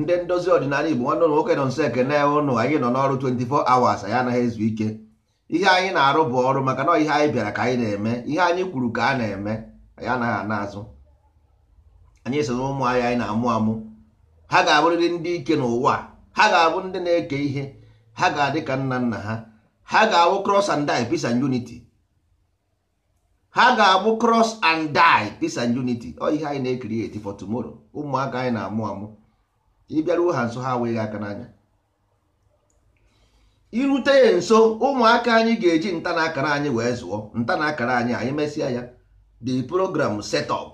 ndị ndozi ọdịnala igbo nwanne ụlọ nwoke nọ nso ekene ụnụ anyị nọ n'ọrụ 24 hours anyị anaghị ezu ike ihe anyị na-arụ bụ ọrụ maka na ihe anyị bịara ka anyị na-eme ihe anyị kwuru ka a na-eme anyị anaghị ana azụ anyị so na ụmụ anyị anyị na-amụ amụ ha ga-abụrịrị ndị ike n'ụwa ha ga-abụ ndị na-eke ihe ha ga-adị ka nna nna ha ha ga-abụ cross and die peace and unity ha ga-abụ cross and die peace and unity ọ ihe anyị na-ekiri eti for tomorrow ụmụaka anyị na-amụ amụ ịbịaruo ha nso ha wee aka n'anya irute ya nso ụmụaka anyị ga-eji nta na akara anyị wee zụọ nta na akara anyị anyị mesịa ya the program setup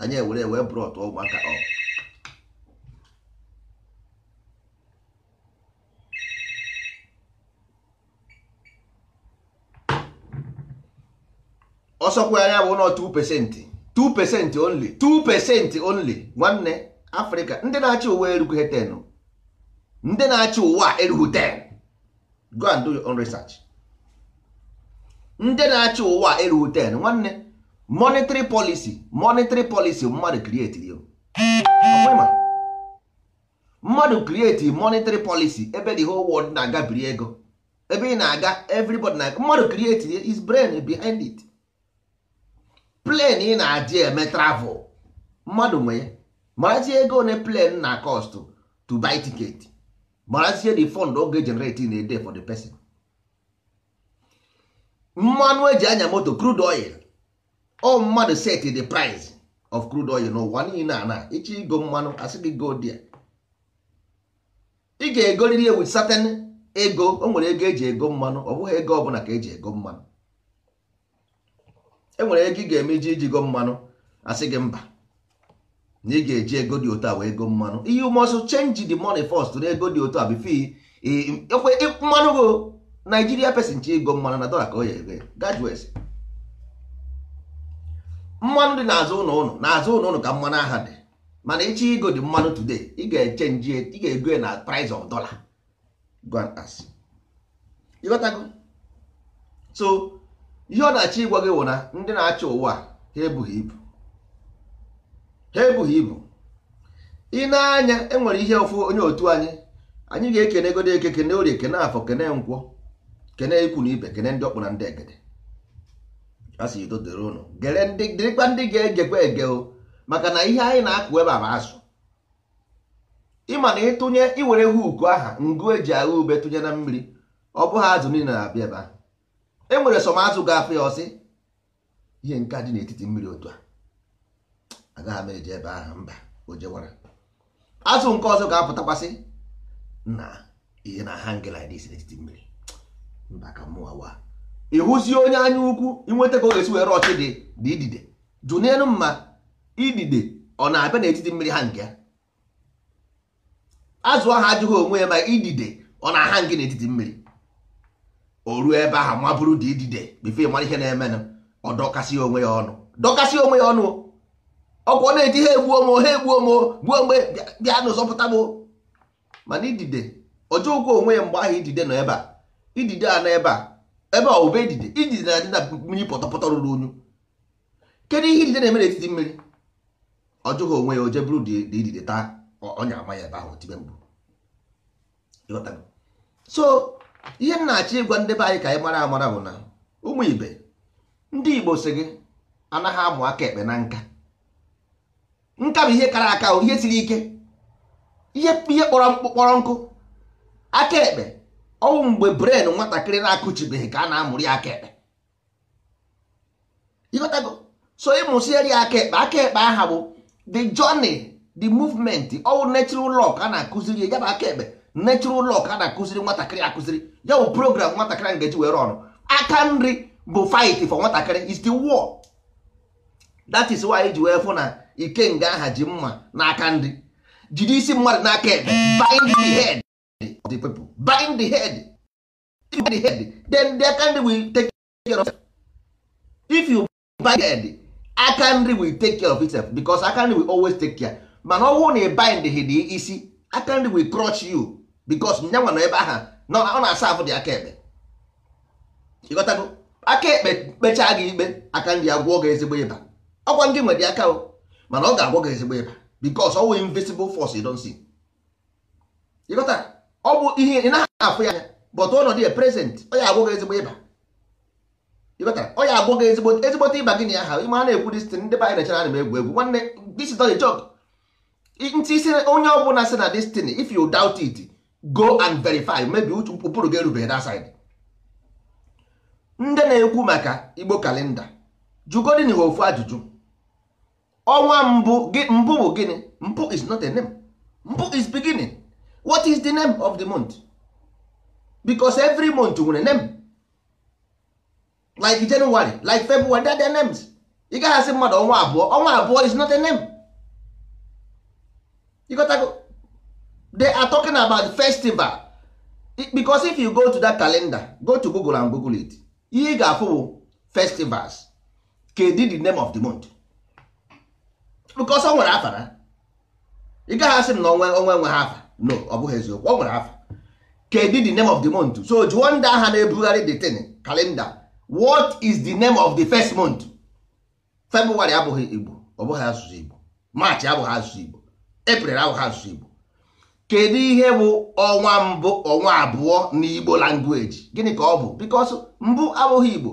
anyị ewere wee bụrụ ọtụ ụmụaka ọ ọsọkwa anya bụ nọ 2 pesenti 2 pesenti only 2 pesenti only nwanne afrịka ndị na-achị ụwa erughị ten ndị na-achị ụwa erughị ten go and do your own research ndị na-achị ụwa erughị ten nwanne monetary policy monetary policy mmadụ create yo mmadụ create monetary policy ebe the whole world na-aga biri ego ebe ị na-aga everybody na mmadụ create his brain behind it plane ị na-adị eme travel mmadụ nwee. ya marazie ego one plan na cost to buy ticket marazie the fund oge generate in a day for the person mmanụ eji anya moto crude oil o mmadụ set the price of crude oil n'ụwa niile a na ịchọ igo mmanụ asị gị go dia ị ga-egoriri with certain ego o nwere ego eji ego mmanụ ọ bụghị ego ọbụla ka eji ego mmanụ enwere ego ị ga iji ijigo mmanụ asị gị mba na ị ga-eji ego dị otu a wee go mmanụ ihe must chenji de money first na ego dị otu a bifo ekwe mmanụ go Naijiria pesin chi ego mmanụ na dọla ka o ya ego mmanụ dị n'azụ ụlọ ụlọ n'azụ ụlọ ụlọ ka mmanụ aha dị mana ịchị ego dị mmanụ tude ị ga-echenji ị ga-ego na price of dollar gwantas ịghọtago so ihe ọ na-achọ ịgwa gị wụ na ndị na-achọ ụwa ha ebughị ibu ha ebughị ibu ị na-anya e nwere ihe ofu onye otu anyị anyị ga-ekene egodo eke kene orie kene afọ kene nkwọ kene ikwu na ibe kene ndị ọkpụ na ndị egede asị ido dịrị ụnụ gere ndị ndị ga-egekwa ege o maka na ihe anyị na-akụ ebe a azụ ịma na ịtụnye iwere huku aha ngụ eji agha ube tụnye na mmiri ọ bụghị azụ niile na-abịa ebe ahụ e nwere sọm azụ ga-afụ ya ọsị ihe nke dị n'etiti mmiri otu a agaghị m eji ebe ahụ mba o jewara azụ nke ọzọ ga-apụtakwasị na ihe na ha ngela n'etiti mmiri mba ka mụwa wa ịhụzie onye anya ukwu ịnweta ka ọ ga-esi were ọchị dị dị idide jụ n'elu mma idide ọ na-abịa n'etiti mmiri ha nke ya azụ ahụ ajụghị onwe ya ma idide ọ na-aha ngị n'etiti mmiri o ruo ebe ahụ mabụrụ dị idide bife mara ihe na-emenụ ọ dọkasị onwe ya ọnụ dọkasị onwe ya ọnụ ọkwa na-eti ha egbuo m ha egbuo m gbuo mgbe bịa n'ụzọpụta m mana idide ọjọọ onwe ya mgbe ahụ idide nọ ebe a idide a na ebe a ebe a idide idide na-adị na mmiri pọtọpọtọ ruru unyu kedu ihe idide na-eme n'etiti mmiri ọjọọ onwe ya oje bụrụ dị idide taa ọnya ama ya ebe ahụ tibe mbụ so ihe m na-achọ ịgwa ndị be anyị ka anyị mara amara bụ na ụmụ ibe ndị Igbo si gị anaghị amụ aka ekpe na nka nka bụ ihe kara aka ihe siri ike ihe ihe kpọrọ nkụ aka ekpe ọnwụ mgbe bren nwatakịrị na-akụchibeghị ka a na-amụrụ ya aka ekpe ịghọtago so ịmụsiere ya aka ekpe aka ekpe aha bụ the journey the movement ọwụ natural law ka a na-akụziri ya bụ aka ekpe natural law ka a na-akụziri nwatakịrị akụziri ya bụ program nwatakịrị ngeji were ọrụ aka nri bụ fight for nwatakịrị is the war that is why eji wee fụ na Ike nga aha ji mma n'aka nri. Jiri isi mmadụ n'aka ebe. bind the head of the people bind the head bind the head then the aka ndị will take care of it. if you bind the head aka ndị will take care of itself because aka ndị will always take care mana ọ bụrụ na ị bind head isi aka ndị will crush you because nyanwa nọ ebe aha ọ na-asa afụ dị aka ekpe ịghọtago aka ekpe kpechaa gị ikpe aka ndị agwụọ gị ezigbo ịba ọkwa ndị nwere aka o mana ọ ga-agwọ gị ezigbo ịba because ọ invisible force you don't see ọ bụ ihe ị naghị afụ ya anya but ọnọdụ ya prezent ọ ya agwọ gị ezigbo ịba ịghọta ọ ya agwọ gị ezigbo ezigbote ịba gịnị aha ya ha ịma na-ekwu dis tin ndị banyere chara na egwu egwu nwanne this is not ntị isi onye ọ bụla sị na this if you doubt it go and verify maybe ụkpụrụ gị erubeghị that side ndị na-ekwu maka igbo kalenda jụgodị n'ihe ofu ajụjụ ọnwa mbụ mbụ bụ gịnị mbụ is not a name mbụ is beginning what is the name of the month because every month nwere name like January like February they are their names ị gaghị asị mmadụ ọnwa abụọ ọnwa abụọ is not a name you got to they are talking about festival because if you go to that calendar go to Google and Google it ihe ị ga-afụ bụ festivals kedu the name of the month because ọ nwere afa na ị gaghị asị m na onwe onwe nwe ha afa no ọ bụghị eziokwu ọ nwere afa kedu the name of the month so jụọ ndị agha na-ebugharị the tin kalenda what is the name of the first month february abụghị igbo ọ bụghị asụsụ igbo march abụghị asụsụ igbo april abụghị asụsụ igbo kedu ihe bụ ọnwa mbụ ọnwa abụọ na igbo language gịnị ka ọ bụ because mbụ abụghị igbo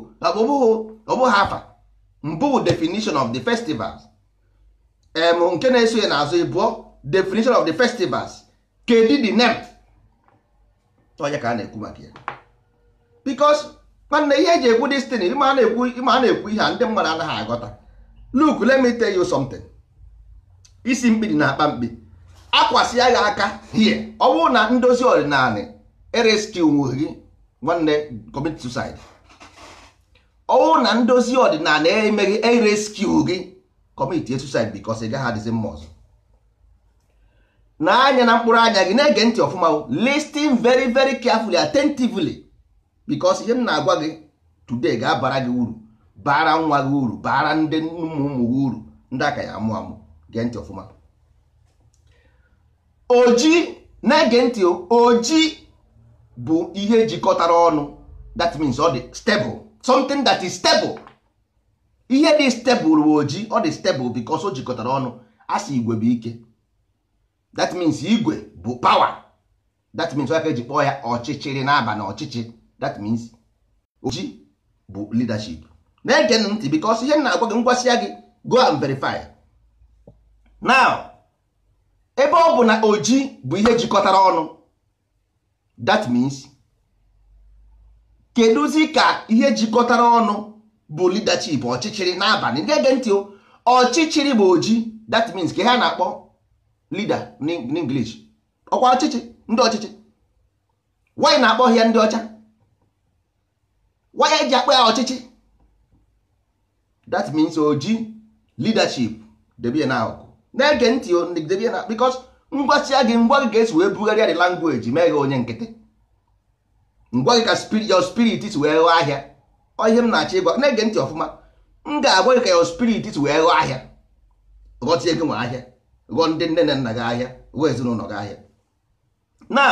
ọ bụghị afa mbụ bụ definition of the festivals em nke na-eso ya n'azụ ịbụọ definition of the festivals kedu the name ọnya ka a na-ekwu maka ya because nwanne ihe eji ekwu destiny ịma a na-ekwu ihe a ndị mmadụ anaghị aghọta look let me tell you something isi mkpi dị na akpa mkpi akwasị ya aka hie ọ bụrụ na ndozi ọdịnala ereskiwu gị nwanne commit suicide ọ bụrụ na ndozi ọdịnala emeghị ereskiwu gị commit suicide because ị gaghị adịzi mma ọzọ na anya na mkpụrụ anya gị na-ege ntị ọfụma listing very very carefully attentively because ihe m na-agwa gị today ga-abara gị uru bara nwa gị uru bara ndị ụmụ ụmụ gị uru ndị aka ya amụ amụ gee ntị ọfụma oji na-ege ntị oji bụ ihe jikọtara ọnụ that means ọ dị stable something that is stable ihe dị stebụl ojii ọ dị stebụl bikos o jikọtara ọnụ asị igwe bụ ike that means igwe bụ pawa that means aka eji kpọọ ya ọchịchịrị n'aba na ọchịchị that means oji bụ leadership na-ege ntị bikos ihe na-agwa gị ngwasịa ya gị go and verify now ebe ọ bụ na oji bụ ihe jikọtara ọnụ that means kedụzi ka ihe jikọtara ọnụ bụ leadership ọchịchịrị n'abalị na-ege ntị ọchịchịrị bụ oji that means ka ha na-akpọ leader n'English ọkwa ọchịchị ndị ọchịchị wanyị na-akpọ ya ndị ọcha wanyị eji akpọ ya ọchịchị that means oji leadership debie na akụkụ na-ege ntị debie na because ngwasịa gị ngwa gị ga-esi wee bugharịa the language mee gị onye nkịtị ngwa gị ka your spirit si wee ghọọ ahịa ihe m na-achọ ịgwa na-ege ntị ọfụma m ga-agwa gị ka ya spirit wee ghọọ ahịa ghọọ tie gị nwe ahịa ghọọ ndị nne na nna gị ahịa ghọọ ezinụlọ gị ahịa na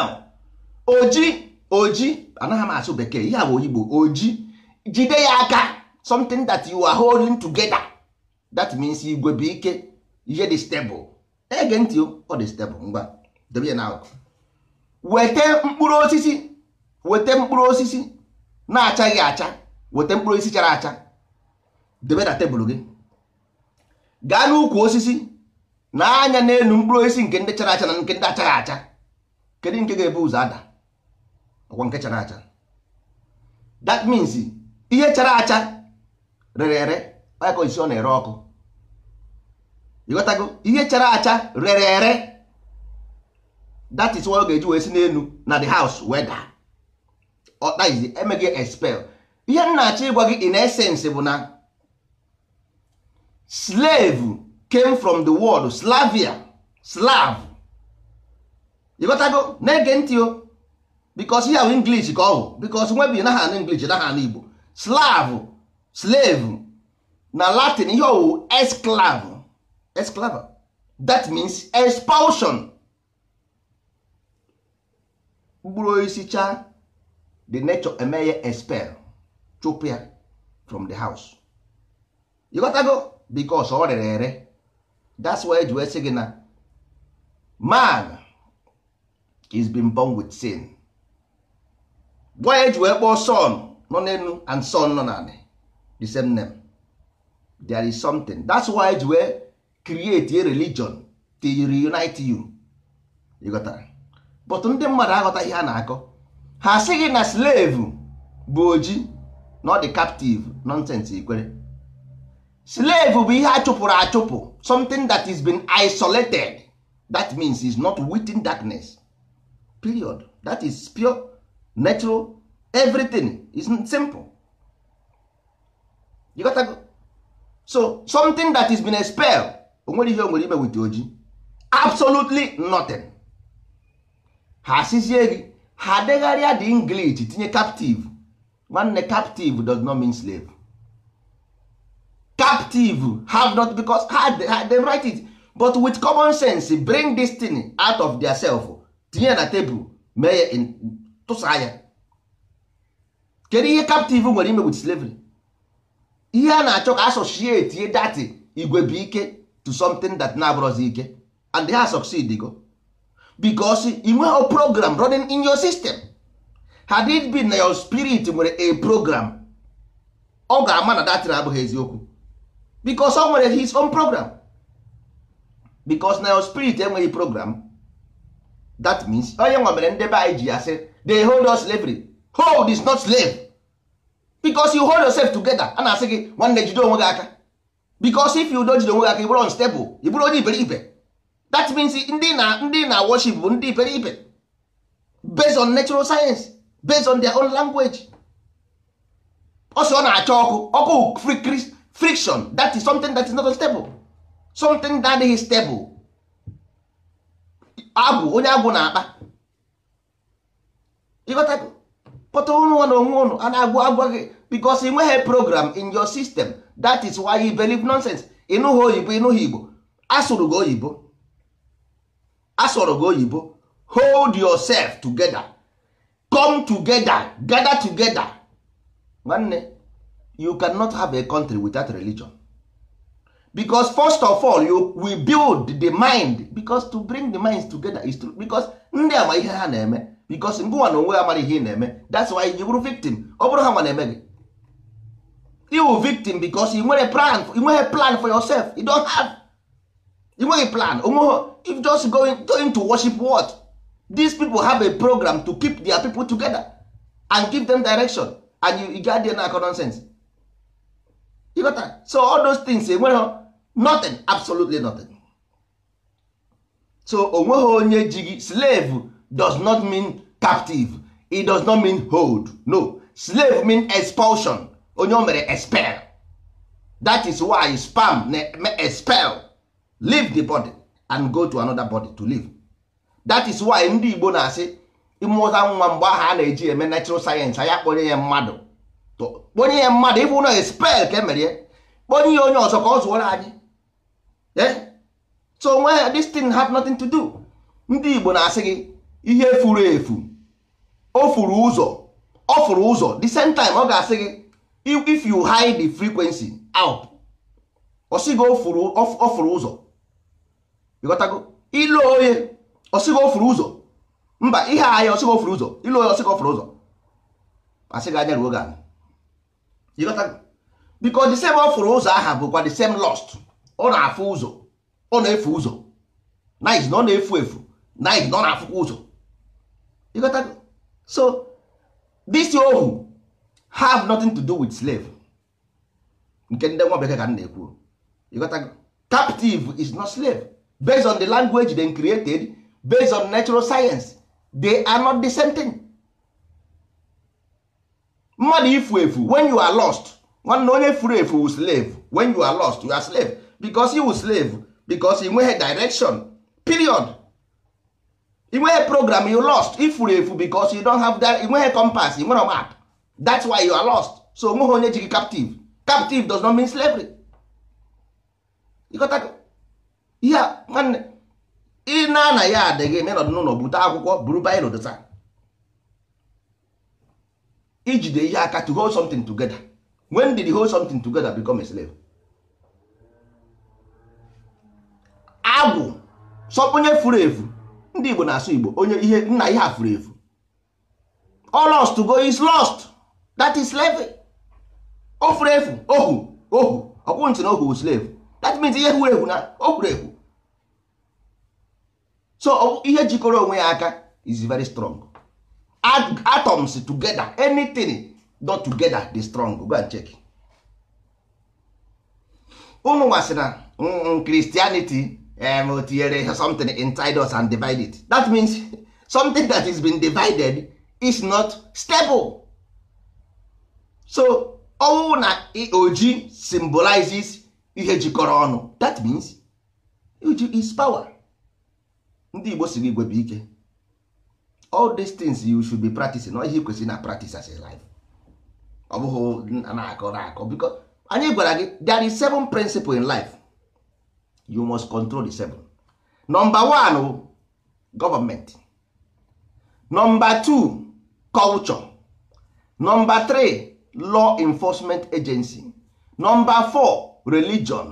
oji oji anaghị m asụ bekee ihe bụ oyigbo oji jide ya aka something that you are holding together that means igwe bụ ike ihe dị stable ege ntị ọ dị stable ngwa debe ya na weta mkpụrụ osisi weta mkpụrụ osisi na-achaghị acha weta mkpụrụ osisi chara acha debe na tebụl gị gaa n'ukwu osisi na anya n'elu mkpụrụ osisi nke ndị chara acha na nke ndị achara acha kedu nke ga-ebu ụzọ ada ọkwa nke chara acha that means ihe chara acha rere ere ọyaka osisi ọ na-ere ọkụ ịghọtago ihe chara acha rere ere that is ọ ga-eji wee si n'elu na the house wee daa emeghị expel ihe m na-achọ ịgwa gị in essence bụ na slave came from the wọld slavia slav ịghọtago na-ege ntị o bikos ihe ahụ inglish ka ọ bụ bikos nwebi naha anụ inglish naha anụ igbo slav slave na latin ihe ọwụ esclav esclava that means expulsion mkpụrụ isi cha the nature eme ya expel chụpụ ya from the house ịghọtago because ọ rere ere that's why eji wee sị gị na man is been born with sin gwa ya eji wee kpọọ son nọ n'elu and son nọ n'ala the same name there is something that's why eji wee create a religion to reunite you ịghọtara but ndị mmadụ aghọtaghị ha na-akọ ha sị gị na slave bụ oji not di captive nonsense ikwere slave bụ ihe a chụpụrụ achụpụ something that is been isolated that means is not within darkness period that is pure natural everything is simple you got to go. so something that is been expelled onwere ihe o nwere ime wit oji absolutely nothing ha asịzie gị ha degharịa the English tinye captive nwanne captive does not mean slave captive have not because ha dem write it but with common sense bring this thing out of their self tinye na table mee ya tụsa ya kedu ihe captive nwere ime with slavery ihe a na-achọ ka associate ihe dati igwe bụ ike to something that na-abụrọzi ike and they ha succeed go because inweghị program running in your system had it been na your spirit nwere a program ọ ga-ama na datin abụghị eziokwu because ọ nwere his own program because na your spirit enweghị program that means onye nwa mere ndebe anyị ji ya sị hold us slavery hold is not slave because you hold yourself together a na-asị gị nwanne jide onwe gị aka because if you don jide onwe gị aka ị bụrụ unstable ị bụrụ onye iberibe that means ndị na ndị na worship bụ ndị iberibe based on natural science based on their own language ọsọ ọ na-acha ọkụ ọkụ friction that is something that is not stable something that is stable agwụ onye agwụ na-akpa ịghọtago pọta ụnụ na onwe ụnụ a na-agwụ agwa gị because ị nweghị program in your system that is why you believe nonsense ịnụghị oyibo ịnụghị igbo asụrụ gị oyibo asụrụ gị oyibo hold yourself together come together gather together nwanne you cannot have a country without religion because first of all you we build the mind because to bring the minds together is true because ndị ama ihe ha na-eme because ngụwa na onwe amara ihe ị na-eme that's why you bụrụ victim ọ bụrụ ha nwa na-eme gị iwu victim because ị nwere plan nweghị plan for yourself you don't have you nweghị plan onweghị if just going, going to worship what these people have a program to keep their people together and give them direction and you, get there na nonsense you got that? so all those things enweghị eh, nothing absolutely nothing so onweghị onye ji gị slave does not mean captive it does not mean hold no slave mean expulsion onye o mere expel that is why spam na expel leave the body and go to another body to live that is why ndị Igbo na-asị ịmụta nwa mgbe aha a na-eji eme natural sayensị anya kponye ya mmadụ kponye ya mmadụ ịbụ na spel ka emere kponye ya onye ọzọ ka ọ zụọrọ anyị e? so nwe this thing have nothing to do ndị Igbo na-asị gị ihe furu efu o furu ụzọ ọ furu ụzọ the same time ọ ga-asị gị if you hide the frequency out ọ sị gị ọ furu ụzọ ịghọtago onye ọsịga ofuru ụzọ mba ihe ahịa ọsịga ofuru ụzọ ịlụ onye ọsịga ofuru ụzọ asịga anya ruo ga biko the same ofuru ụzọ aha bụkwa the same lost ọ na-afụ ụzọ ọ na-efu ụzọ nice na ọ na-efu efu nice na ọ na-afụkwa ụzọ so this ohu have nothing to do with slave nke ndị nwa bekee ka m na-ekwu ịghọtago captive is not slave based on the language they created based on natural science they are not the same thing mmadụ ifu efu when you are lost nwanne onye furu efu wu slave when you are lost you are slave because you slave because he nweghị direction period ị nweghị program you lost ifuru efu because you don't have that ị nweghị compass ị nwere map that's why you are lost so onweghị onye ji gị captive captive does not mean slavery ịghọta ihe nwanne ị na na ya adịghị na ịnọdụ n'ụlọ bute akwụkwọ buru baịro dota ijide ihe aka to hold something together when did you hold something together become a slave agwụ sọ onye furu efu ndị Igbo na-asụ Igbo onye ihe nna ihe a furu efu all lost to go is lost that is slave o furu efu ohu ohu ọkwụ ntị na ohu slave that means ihe furu efu na o furu efu so ihe jikọrọ onwe ya aka is very strong atoms together anything not together dey strong go and check ụmụ nwasị na mm, mm, Christianity um, tinyere something inside us and divide it that means something that is been divided is not stable so ọnwụ na oji symbolizes ihe jikọrọ ọnụ that means oji is power ndị igbo si gị gwebe ike all these things you should be practicing ọ ihe kwesịrị na practice as a life ọ bụghị na-akọ na-akọ biko anyị gwara gị there is seven principle in life you must control the seven number one government number two culture number three law enforcement agency number four religion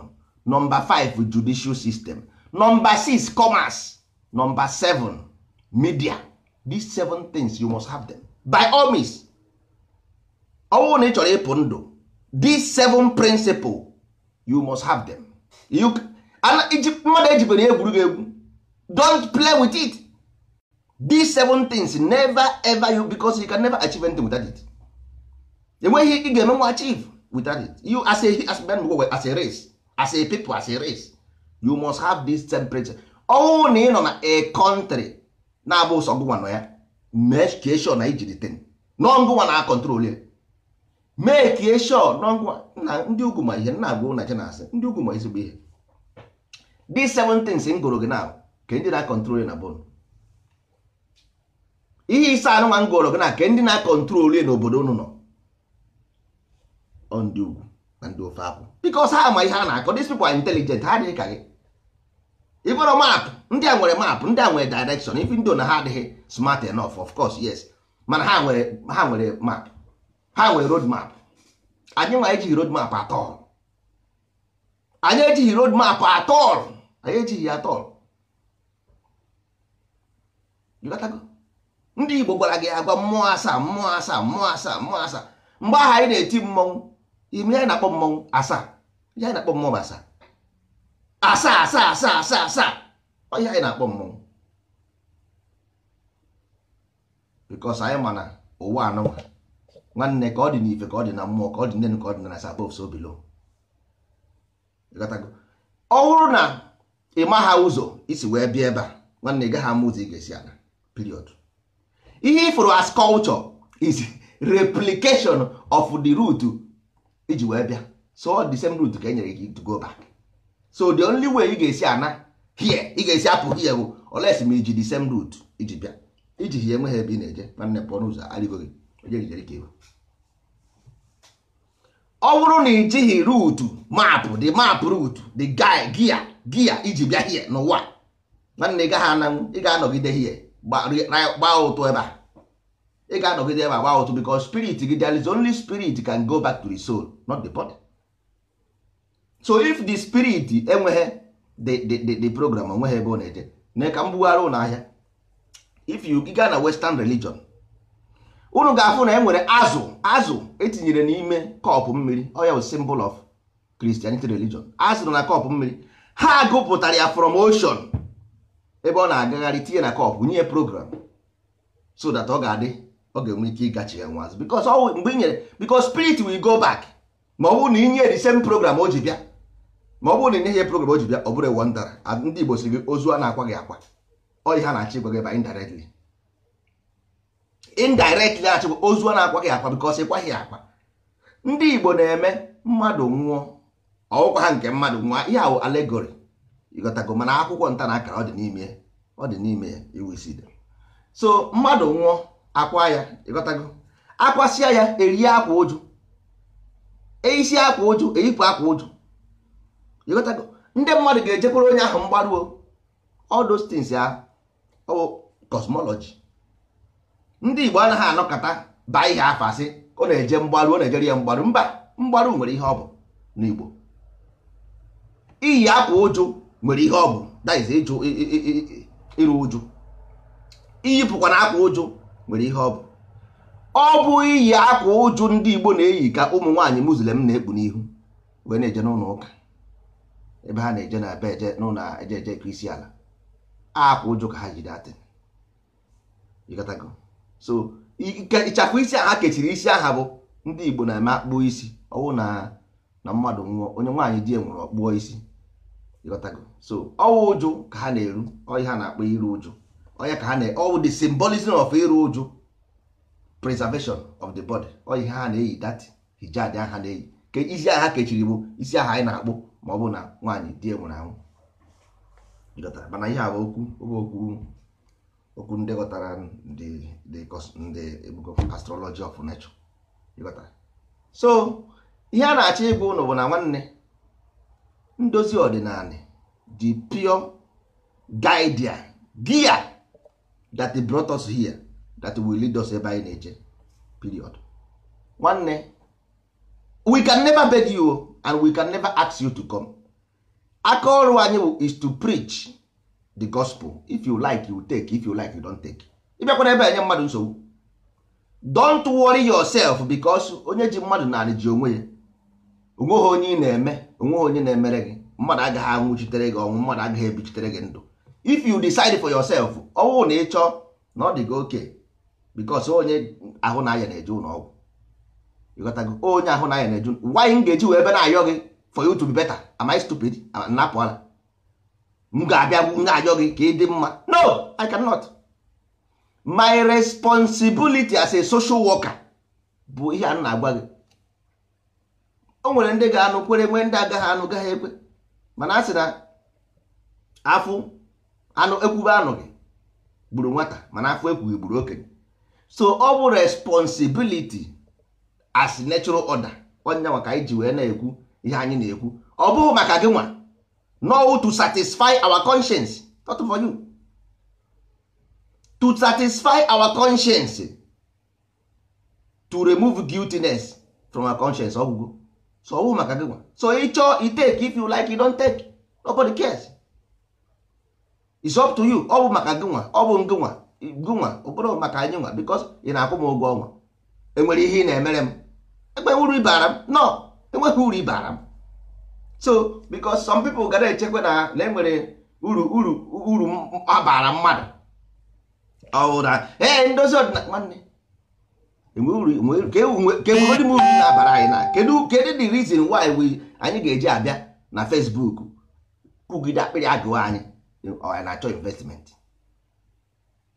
number five judicial system number six commerce number seven media these seven things you must have them by all means ọwụ na ị chọrọ ịpụ ndụ these seven principle you must have them you mmadụ ejibere egwuregwu egwu don't play with it these seven things never ever you because you can never achieve anything without it enweghị ị ga-emenwe achieve without it you as a as as a race as a people as a race you must have these seven principles ọnwụ na ị nọ na a kọntrị na-abụ ụsọ gụnwa nọ ya mee ka eshọ na ijiri ten n'ọngụnwa na akọntrol ya mee ka eshọ na ndị ugwu ma ihe nna agwụ na jenasị ndị ugwu ma ezigbo ihe dị seven things m gụrụ gị na ka ndị na-akọntrol na bon ihe ise anụnwa m gụrụ gị na ka ndị na-akọntrol ya n'obodo unu nọ ọ ndị ugwu na ndị ofe akwụ because ha ama ihe a na-akọ these people are ha adịghị ka gị ịbụrụ map ndị a nwere map ndị a nwere direction even though na ha adịghị smart enough of course yes mana ha nwere ha nwere map ha nwere road map anyị nwa ejighị road map atọl anyị ejighị road map atọl anyị ejighị ya atọl ndị Igbo gwara gị agwa mmụọ asaa mmụọ asaa mmụọ asaa mmụọ asaa mgbe ahụ anyị na-eti mmọnwụ ime anyị na-akpọ mmọnwụ asaa ihe anyị na-akpọ mmọnwụ asaa asaa asaa asaa asaa asaa ọ ihe anyị na-akpọ mmọnwụ bikos anyị ma na ụwa anụwa nwanne ka ọ dị n'ife ka ọ dị na mmụọ ka ọ dị n'elu ka ọ dị na sabov so bilo ọ bụrụ na ị ma ha ụzọ isi e wee bịa ebe a nwanne ị gaghị ama ụzọ ị e ga-esi ana period ihe ị fụrụ as culture is replication of the root iji e wee bịa so the same root ka e nyere gị to go back so the only way ị ga-esi ana here ị ga-esi apụ here bụ oles ma iji the same route iji bịa iji hie enweghị ebe ị na-eje nwanne pụọ n'ụzọ arịgo gị ọ bụrụ na ijighị ruutu maapụ the map ruutu the guy gia gia iji bịa hie n'ụwa nwanne ị gaghị ananwụ ị ga-anọgide hie gba ụtụ ebe a ị ga-anọgide ebe a gba ụtụ because spirit gị there only spirit can go back to the soul not the body. so if the spirit enweghị the program onweghị ebe ọ na-eje na ka m ụlọ ahịa if you gaa na western religion unu ga-afụ na e nwere azụ azụ etinyere n'ime kọpụ mmiri oya bụ symbol of christianity religion azụ na kọpụ mmiri ha gụpụtara ya from ocean ebe ọ na-agagharị tinye na kọpụ nye program so that ọ ga-adị ọ ga-enwe ike ịgachi ya nwa azụ because mgbe i nyere because spirit will go back ma ọ bụrụ na inye the same program o ji bịa ma ọ bụrụ na ị nyeghị program o ji bịa ọ bụrụ ewu ndara ndị Igbo si gị ozu a na-akwa gị akwa ọ ihe na-achị gwa gị ba indirectly indirectly achịgwa ozu a na-akwa gị akwa because kwaghị akwa ndị Igbo na-eme mmadụ nwụọ ọwụkwa ha nke mmadụ nwụọ ihe ahụ allegory ịghọtago mana akwụkwọ nta na akara ọ dị n'ime ọ dị n'ime ya iweside so mmadụ nwụọ akwa ya ịghọtago akwasịa ya erie akwa ụjụ eisi akwa ụjụ eyipụ akwa ụjụ ndị mmadụ ga-ejekwuru onye ahụ mgbaruo all those ya ọ oh, cosmology ndị Igbo anaghị anọkọta baa ihe afọ asị ọ na-eje mgbaru ọ na-ejere ya mgbaru mba mgbaru nwere ihe ọ bụ n'Igbo iyi akwa ụjụ nwere ihe ọ bụ daiz ịjụ ịrụ ụjụ iyipụkwa na akwa ụjụ nwere ihe ọ bụ ọ bụ iyi akwa ụjụ ndị Igbo na-eyi ka ụmụ nwaanyị Muslim na-ekpu n'ihu wee na-eje n'ụlọ ụka ebe ha na-eje na be eje n'ụlọ eje eje ka isi ala akwa ụjụ ka ha jide atị so ịchakwa isi aha kechiri isi aha bụ ndị Igbo na-eme akpụọ isi ọwụ na na mmadụ nwụọ onye nwaanyị di nwụrụ ọkpụọ isi so ọwụ ụjụ ka ha na-eru ọyị ha na-akpọ iru ụjụ ọya ka ha na ọwụ the symbolism of iru ụjụ preservation of the body ọyị ha na-eyi that hijab ha na-eyi ka isi aha kechiri bụ isi aha anyị na-akpụ ma ọ bụ na nwaanyị di nwụrụ anwụ gọtara mana ihe a okwu okwu okwu ndị ghọtara ndị ebugo astrology of nature gọtara. so ihe a na-achọ ịbụ ụlọ bụ na nwanne ndozi ọdịnala the pure guide gear that brought us here that will lead us ebe anyị na-eje period nwanne we can never beg you and we can never ask you to come aka ọrụ anyị bụ is to preach the gospel if you like you take if you like you don't take ịbịakwana ebe enye mmadụ nsogbu don't worry yourself because onye ji mmadụ naanị ji onwe ya onweghị onye na-eme onweghị onye na-emere gị mmadụ agaghị anwụchitere gị ọnwụ mmadụ agaghị ebichitere gị ndụ if you decide for yourself ọnwụ na ịchọ na ọ dị gị oke because onye ahụ na aya na-eje ụlọ ịghọtago onye oh, ahụ n'anya anyị na-eju wanyị m ga-eji wee ebe na-ayọ gị for you to be better am I stupid napụ ala m ga-abịa na-ayọ gị ka ị dị mma no I cannot my responsibility as a social worker bụ ihe a na-agwa gị o nwere ndị ga-anụ kwere nwee ndị agaghị anụ gaghị ekwe mana a sị na afụ anụ ekwube anụ gị gburu nwata mana afụ ekwughị gburu okenye so ọ bụ responsibility as natural order onye nwa ka anyị ji wee na-ekwu ihe anyị na-ekwu ọ bụghị maka gị nwa no to satisfy our conscience not for you to satisfy our conscience to remove guiltiness from our conscience ọgwụgwụ so ọ bụghị maka gị nwa so ị chọọ i take if you like you don't take nobody cares it's up to you ọ bụ maka gị nwa ọ bụ gị nwa gị nwa ọ bụrụ maka anyị nwa because ị na-akwụ m ụgwọ ọnwa enwere ihe ị na-emere m enweghị uru ibara m nọ enweghị uru ibara m so because some people gara echekwa na na enwere uru uru uru abara mmadụ ọwụra ee ndozi ọdịnala nwanne kedị e m uru na-abara anyị na kedụ kedu the reason why we anyị ga-eji abịa na Facebook kwugide akpịrị agụụ anyị anyị na-achọ investment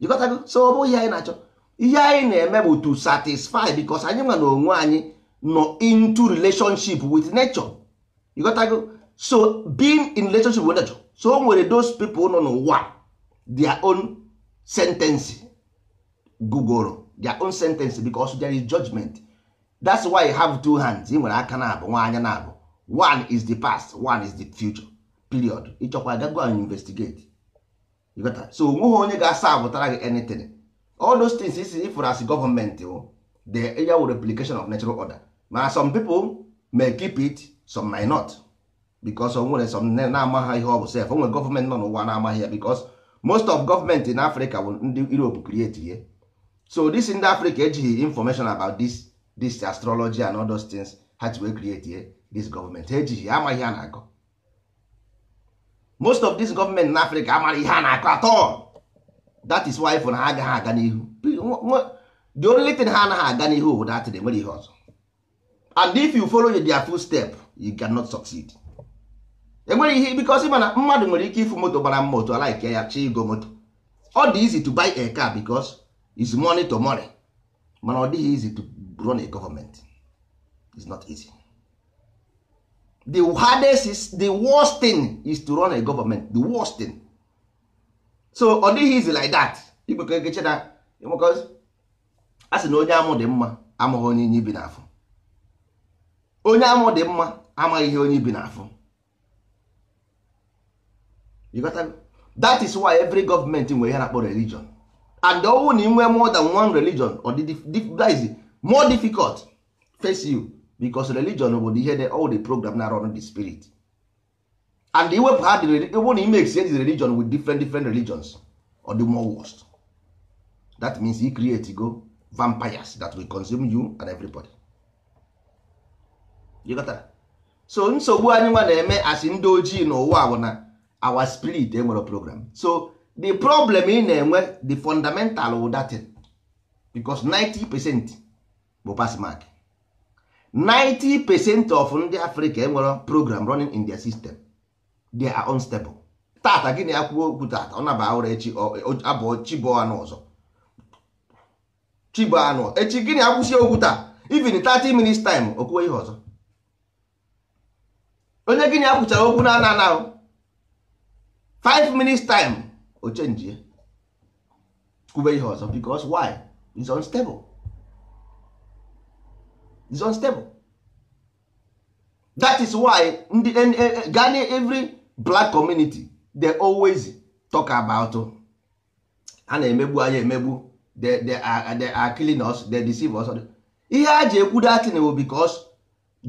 jikọtago so ọ bụghị ihe anyị na-achọ ihe anyị na-eme bụ to satisfy because anyị nwa na onwe anyị nọ into relationship with nature you got to go so being in relationship with nature so o nwere those people nọ n'ụwa their own sentence gugoro their own sentence because there is judgment that's why you have two hands ị nwere aka na abụ nwa anya na abụ one is the past one is the future period ịchọkwa gago and investigate you got so onweghị onye ga-asa abụtara gị anything all those things isi ifụrụ as gọọmenti oh, the ya wụ replication of natural order ma some people may keep it some may not because o nwere some na-amaghị ihe ọ bụ sef o nwere gọọmenti nọ n'ụwa na-amaghị ya because most of government in Africa bụ ndị europe create ihe so this ndị Africa ejighị information about this this astrology and other things ha ji wee create ihe this government ha ejighị amaghị ha na-akọ most of this government na Africa amaghị ihe a na-akọ all. that is why for na ha agaghị aga n'ihu the only thing ha anaghị aga n'ihu bụ dat nwere ihe ọzọ and if you follow their step, you cannot succeed enwere ihe because mana mmadụ nwere ike ịfụ moto gbara mma otu alaike ya chi igo moto ọ dị easy to buy a car because is money to money mana ọ dịghị easy to run a government is not easy the hardest is the worst thing is to run a government the worst thing so ọ dịghị easy like that igbekọ egeche na because a sị na onye amụ dị mma amaghị onye inye na n'afọ onye amụ dị mma amaghị ihe onye bi n'afọ that is why every government nwere ihe na-akpọ religion and ọwụ na inwe more than one religion or that is more difficult face you because religion bụ ihe the all the program na run the spirit and iwepụ ha ịbụ na ime exchange religion with different different religions or the more worst that means you create go vampires that will consume you and everybody. so nsogbu anyị nwa na-eme asị ndị ojii n'ụwa bụ na our spirit enwere program so the problem ị na-enwe the fundamental wụ datin 90 bụ pass 90 percent of ndị Africa enwere program running in their system they are unstable tata gịnị akwụkwọ okwu tata ọ naba ụra echi abụọ chibụ anụ ọzọ chibụ anụ echi gịnị akwụsị okwu taa even 30 minutes time okwu ihe ọzọ onye gịnị a kwụchara okwu na ana 5 minutes time o chenjie kwube ihe ọzọ because why is unstable is unstable that is why ndị gani every black community they always talk about a na-emegbu anya emegbu they they are are killing us they deceive us ihe a ji ekwu datin bụ because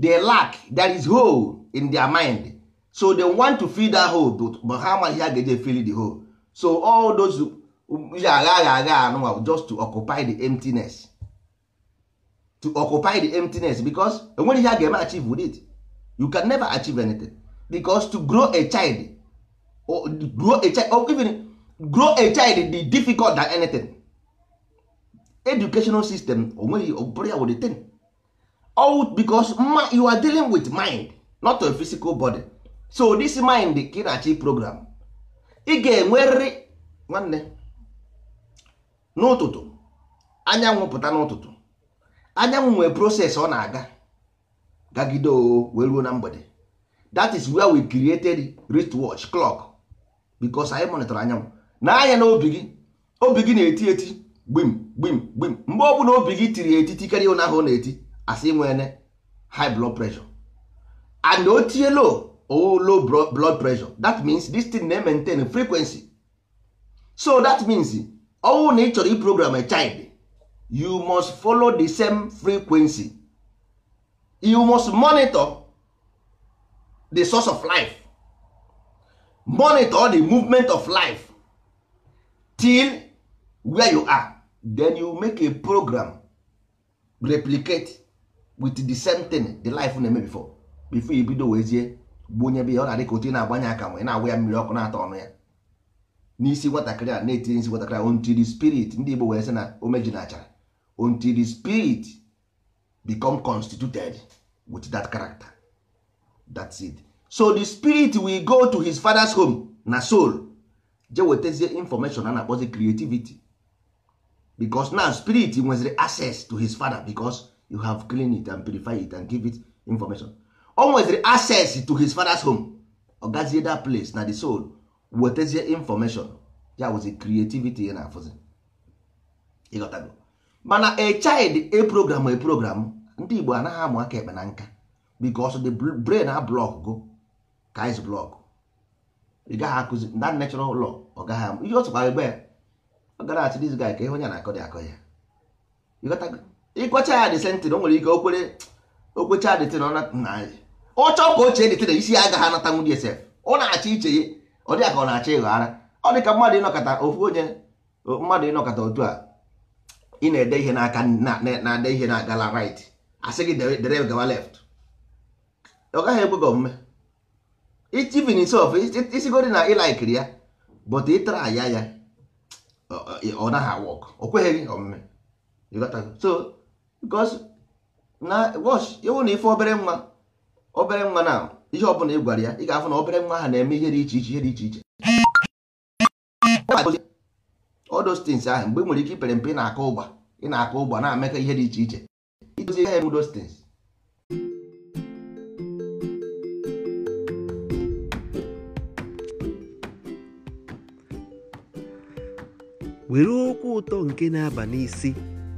they lack that is hole in their mind so they want to fill that hole but ha amaghị ha ga-eje fill the hole so all those ihe agha agha agha anụnwa just to occupy the emptiness to occupy the emptiness because enwere ihe a ga-eme achieve with it you can never achieve anything because to grow a child or grow a child or even grow a child dị difficult than anything educational system onwere ọ bụrụ ya wụrụ thing all because you are dealing with mind not a physical body so this mind ka na-achị program ị ga-enwerịrị nwanne n'ụtụtụ anyanwụ pụta n'ụtụtụ anyanwụ nwee proses ọ na-aga gagide o wee ruo na mgbede that is where we created wristwatch clock because anyị monitor anyanwụ na anya na obi gị obi gị na-eti eti gbim gbim gbim mgbe ọ bụla obi gị tiri eti karịa ụnyaahụ ọ na-eti asị nwere high blood pressure and o tinye low or low blood pressure that means this thing na maintain frequency so that means owo na ị chọrọ iprogram a child you must follow the same frequency you must monitor the source of life monitor the movement of life till where you are then you make a program replicate with the same thing the life na-eme before bifo ibido wezie gbunye be ya ọ na-adị ka otu ị na-agbanye aka ma ị na-agwa ya mmiri ọkụ na atọ ọnụ ya n'isi nwatakịrị a na-etinye isi nwatakịrị a spirit ndị Igbo wee sị na omeji na achara until spirit become constituted with that character that it so the spirit will go to his father's home na soul je wetazie information a na-akpọzi creativity because now spirit nweziri access to his father because you have clean it and purify it and give it information o nweziri access to his father's home ọ gazie that place na the soul wetezie information ya wụzi creativity ya na-afụzi ịghọtago mana a child a program a program ndị Igbo anaghị amụ aka ekpe na nka because the brain a block go ka is block ị gaghị akụzi na natural law ọ gaghị amụ ihe ọtụkwa egbe ọ gara achị this guy ka ihe onye na-akọ dị akọ ya ịghọtago ịgwacha ya dị sentin o nwere ike okwere okwecha dị tin ọ na anyị ọ chọọ ka ochie dị isi ya agaghị anata nwunye sef ọ na-achọ iche ya ọ dịka ọ na-achọ ịghọ ara ọ ka mmadụ ịnọkọta ofu onye mmadụ ịnọkọta otu a ị na-ede ihe n'aka na-ede ihe na gala right asị gị dere gawa left ọ gaghị egbu gị omume itivin sof isigodi na ịlaikiri ya bụta ịtara ya ya ọ naghị awọk o kweghị omume so because na wọsh ewu na ife obere nwa obere nwa na ihe ọbụla ị gwara ya ị ga-afụ na obere nwa ha na-eme ihe dị iche iche ihe dị iche iche odostins ahụ mgbe e nwere ike ipere mpe ị na-akọ ụgba ị na-akọ ụgba na-amekọ ihe dị iche iche idozi ihe odostins were okwu ụtọ nke na-aba n'isi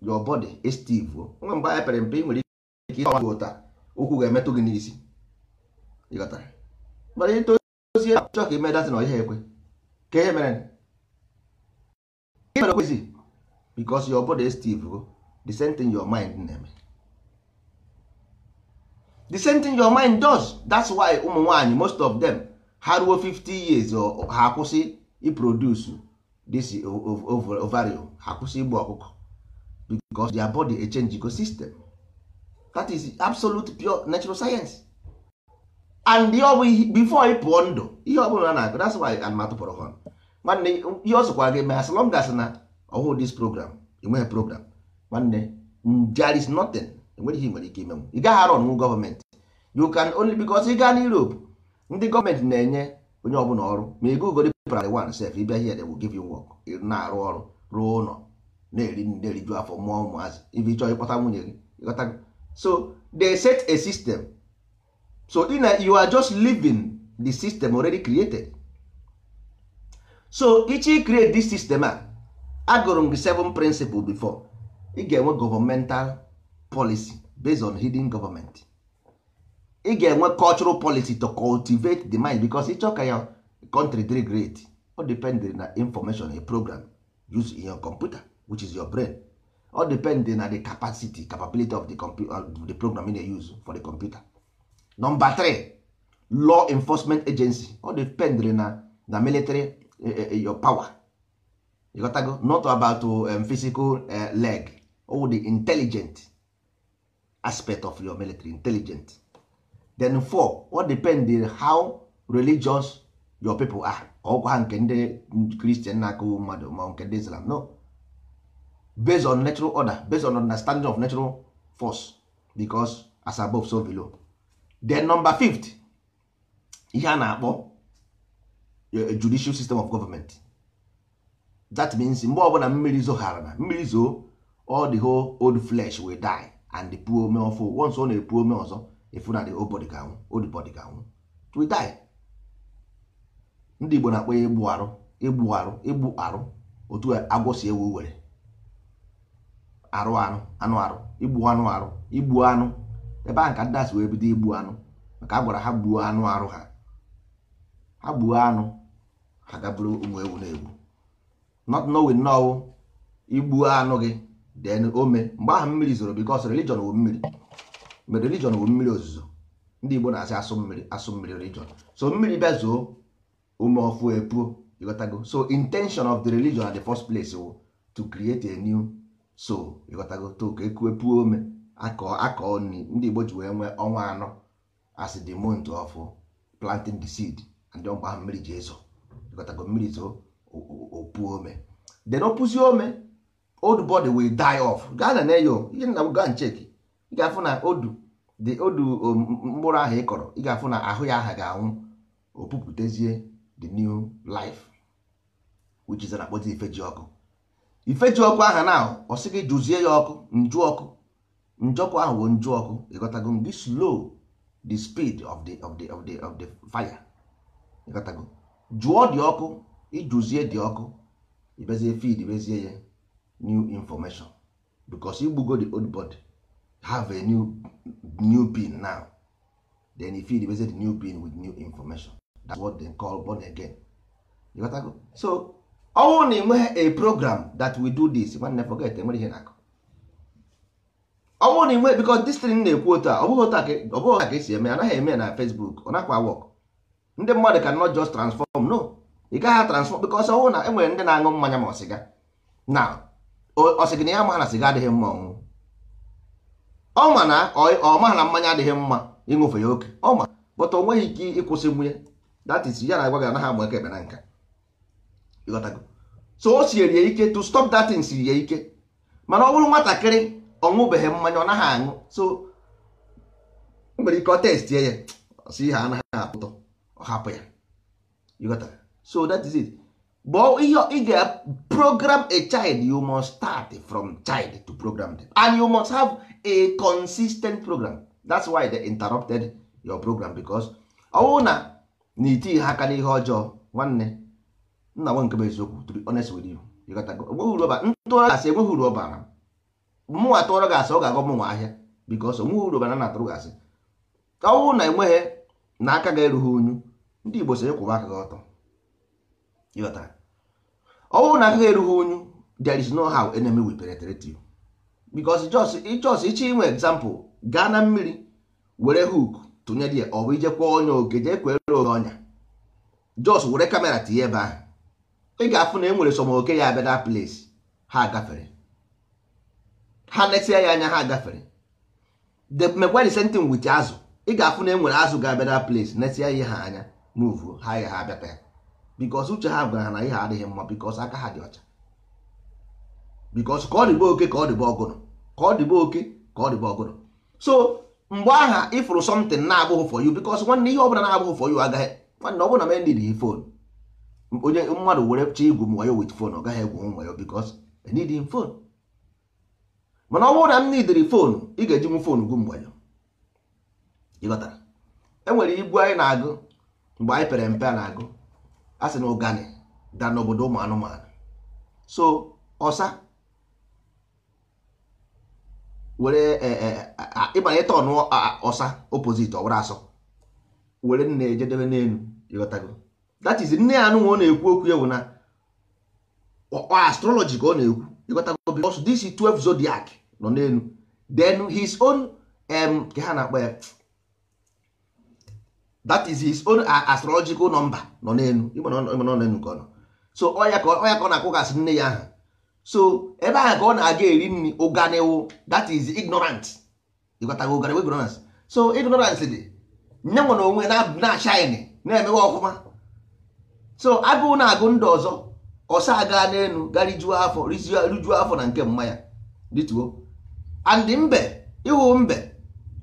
your body is still nwa mgbe anyị pere mpe nwere ike ịgba gị ụta ụkwụ ga-emetụ gị n'isi ịghọtara mana ị tozie chọọ ka ime na ọhịa ekwe ka ihe mere mere kwezi because your body is oh. the same thing your mind na-eme the same thing your mind does that's why ụmụ nwaanyị most of them ha ruo 50 years ha akwụsị iproduce this ovarium ha akwụsị igbu ọkụkọ because their body a change ecosystem that is absolute pure natural science and before ị pụọ ndụ ihe ọ bụla na that's why anụmatụ pụrụ họn nwanne ihe ọ sokwa gị as long as na ọhụụ this program enweghị program nwanne there is nothing enweghị ihe nwere ike ime ị gaghị arọ nwu gọọmenti you can only because ị gaa na Europe ndị gọọmenti na-enye onye ọbụla ọrụ ma ị gụgori primary one sef ịbịa here they will give you work na-arụ ọrụ ruo ụlọ na-eri na-eriju afọ mụọ ụmụazị ibi chọọ ịkpọta nwunye gị gọta so they set a system so in a, you are just living the system already created so ichi create this system a agụrụ m gị seven principle before ị ga-enwe governmental policy based on hidden government ị ga-enwe cultural policy to cultivate the mind because ịchọ ka ya country dịrị great ọ depend na information a program use in your computer which is your brain ọ depend na the capacity capability of the, of uh, the program you dey use for the computer number three law enforcement agency ọ depend na na military e, e, e, your power you not about um, physical uh, leg or the intelligent aspect of your military intelligent then four what depend how religious your people are ọgwa ha nke ndị kristian na-akụ mmadụ ma nke ndị islam no based on natural order based on understanding of natural force because as above so below then number fifth ihe a na-akpọ eh, judicial system of government that means mgbe ọbụla mmiri zoghara na mmiri zoo all the whole old flesh will die and the poor ome ọfụ once ọ na-epu ome ọzọ if na the ga anwụ old ga anwụ ndị Igbo na-akpọ ya igbu arụ igbu arụ igbu arụ otu agwọ si ewu were arụ anụ anụ arụ igbu anụ arụ igbu anụ ebe ahụ ka ndị asị wee bido igbu anụ maka a gwara ha gbuo anụ arụ ha ha gbuo anụ ha gaburu ụmụ ewu na-egbu not knowing now igbuo anụ gị then ome mgbe ahụ mmiri zoro because religion wụ mmiri mere religion bụ mmiri ozuzo ndị Igbo na-asị asụ mmiri asụ mmiri religion so mmiri bịa zoo ume ọfụ epuo ịghọtago so intention of the religion at the first place wo to create a new soul ịghọtago to ka ekuepuo ome akọ akọ nri ndị Igbo ji wee nwee ọnwa anọ as the month of planting the seed and mkpa ahụ mmiri ji ezo ịghọtago mmiri zoo opuo ome then opuzie ome old body will die off gaa na ihe nna m gaa ncheki ị ga-afụ na odu dị odu mkpụrụ ahụ ị kọrọ ị ga-afụ na ahụ ya aha ga-anwụ opupụtezie the new life which is na akpọzi ifeji ọkụ ifeji ọkụ aha na ọ sị gị jụzie ya ọkụ njụ ọkụ njọkụ ahụ bụ njụ ọkụ ịghọtago gị slow the speed of the of the of the of the fire ịghọtago jụọ dị ọkụ ijụzie dị ọkụ ibezie feed bezie ya new information because igbugo the old body have a new new pin now then if you replace the new pin with new information that's what they call born again you got go so ọnwụ na enweghị a program that we do this nwanne forget enwere ihe na-akụ ọnwụ na enwe because this thing na-ekwu otu a ọ bụghị otu a ka esi e eme anaghị eme na Facebook ọ nakwa work ndị mmadụ can not just transform no ị gaghị transform because ọnwụ na enwere ndị na-aṅụ mmanya ma ọsịga na ọsịgị na ya ma na sịga adịghị mma ọnwụ ọ ma na ọ ma na mmanya adịghị mma ịṅụfe ya oke ọ ma bụta o nweghị ike ịkwụsị nwunye that is ya na agwa gị anaghị amụ eke ekpe na nka ịghọtago so o siere ya ike to stop that thing siri ya ike mana ọ bụrụ nwatakịrị ọṅụbeghị mmanya ọ naghị aṅụ so nwere ike ọ testie ya si ihe anaghị apụtọ ọ hapụ ya ịghọtago so that but ihe ị ga program a child you must start from child to program them and you must have a consistent program that's why they interrupted your program because ọwụ na na iti ha aka n'ihe ọjọọ nwanne nna nwe nke bụ eziokwu to be honest with you ntụọrọ gasị enweghị uru ọbara mụnwa tụọrọ gasị ọ ga-agọ mụnwa ahịa because onweghị uru ọbara na atụrụ gasị ọwụ na enweghị na aka ga-erughị unyu ndị Igbo so kwụwa aka gị ọtọ ọ bụrụ na agaghị erughị onyu there is no how enemy will penetrate you because just ịchọs ịchọ inwe example gaa na mmiri were hook tụnyere ya ọ bụ ije kwụọ onye oge jee kwere oge ọnya jos were kamera tinye ebe ahụ ị ga-afụ na e nwere sọm oke ya abịa na place ha gafere ha netia ya anya ha gafere the megwari sentin wit azụ ị ga-afụ na e nwere azụ ga-abịa na place netia ihe ha anya move ha ya ha abịata ya bikos uche ha gwara na ihe adịghị mma bikos aka ha dị ọcha bikos ka ọ dịbe oke ka ọ dịbe ọgụrụ ka ọ dịbe oke ka ọ dịbe ọgụrụ so mgbe aha ịfụrụ somtin na-abụghị for you bikos nwanne ihe ọbụla na-abụghị for you agaghị nwanne ọ bụla mendị dị fon onye mmadụ were chọọ igwu m ya wit fon ọ gaghị egwu m wayo bikos enidin fon mana ọ bụrụ na m nidiri fonu ị ga-eji m fonu gwu mgbe ịghọtara enwere igwu anyị na-agụ mgbe anyị pere mpe a na-agụ a sị na ụgani da n'obodo ụmụ anụmanụ so ọsa were e, e, ịbanye tọn ọsa opposite ọwara asọ were nna ejedebe n'elu ịghọtago that is nne ya anụnwa ọ na-ekwu okwu ya bụ na astrology ka ọ na-ekwu ịghọtago because this 12 zodiac nọ n'elu then his own ka ha na-akpọ ya that is his own uh, astrological number nọ n'elu ka ọ so ọya ka ọ na-akwụgasị nne ya ahụ so ebe ahụ ka ọ na-aga eri nri ụganiwu that is ignorant ịgotago ụganiwu ignorance so ignorance dị nye nwe na onwe na shine na-emewe ọfụma so agụụ na-agụ ndụ ọzọ ọsa aga n'elu garijuo afọ rijuo afọ na nke mmanya ya dịtuo and mbe ịhụ mbe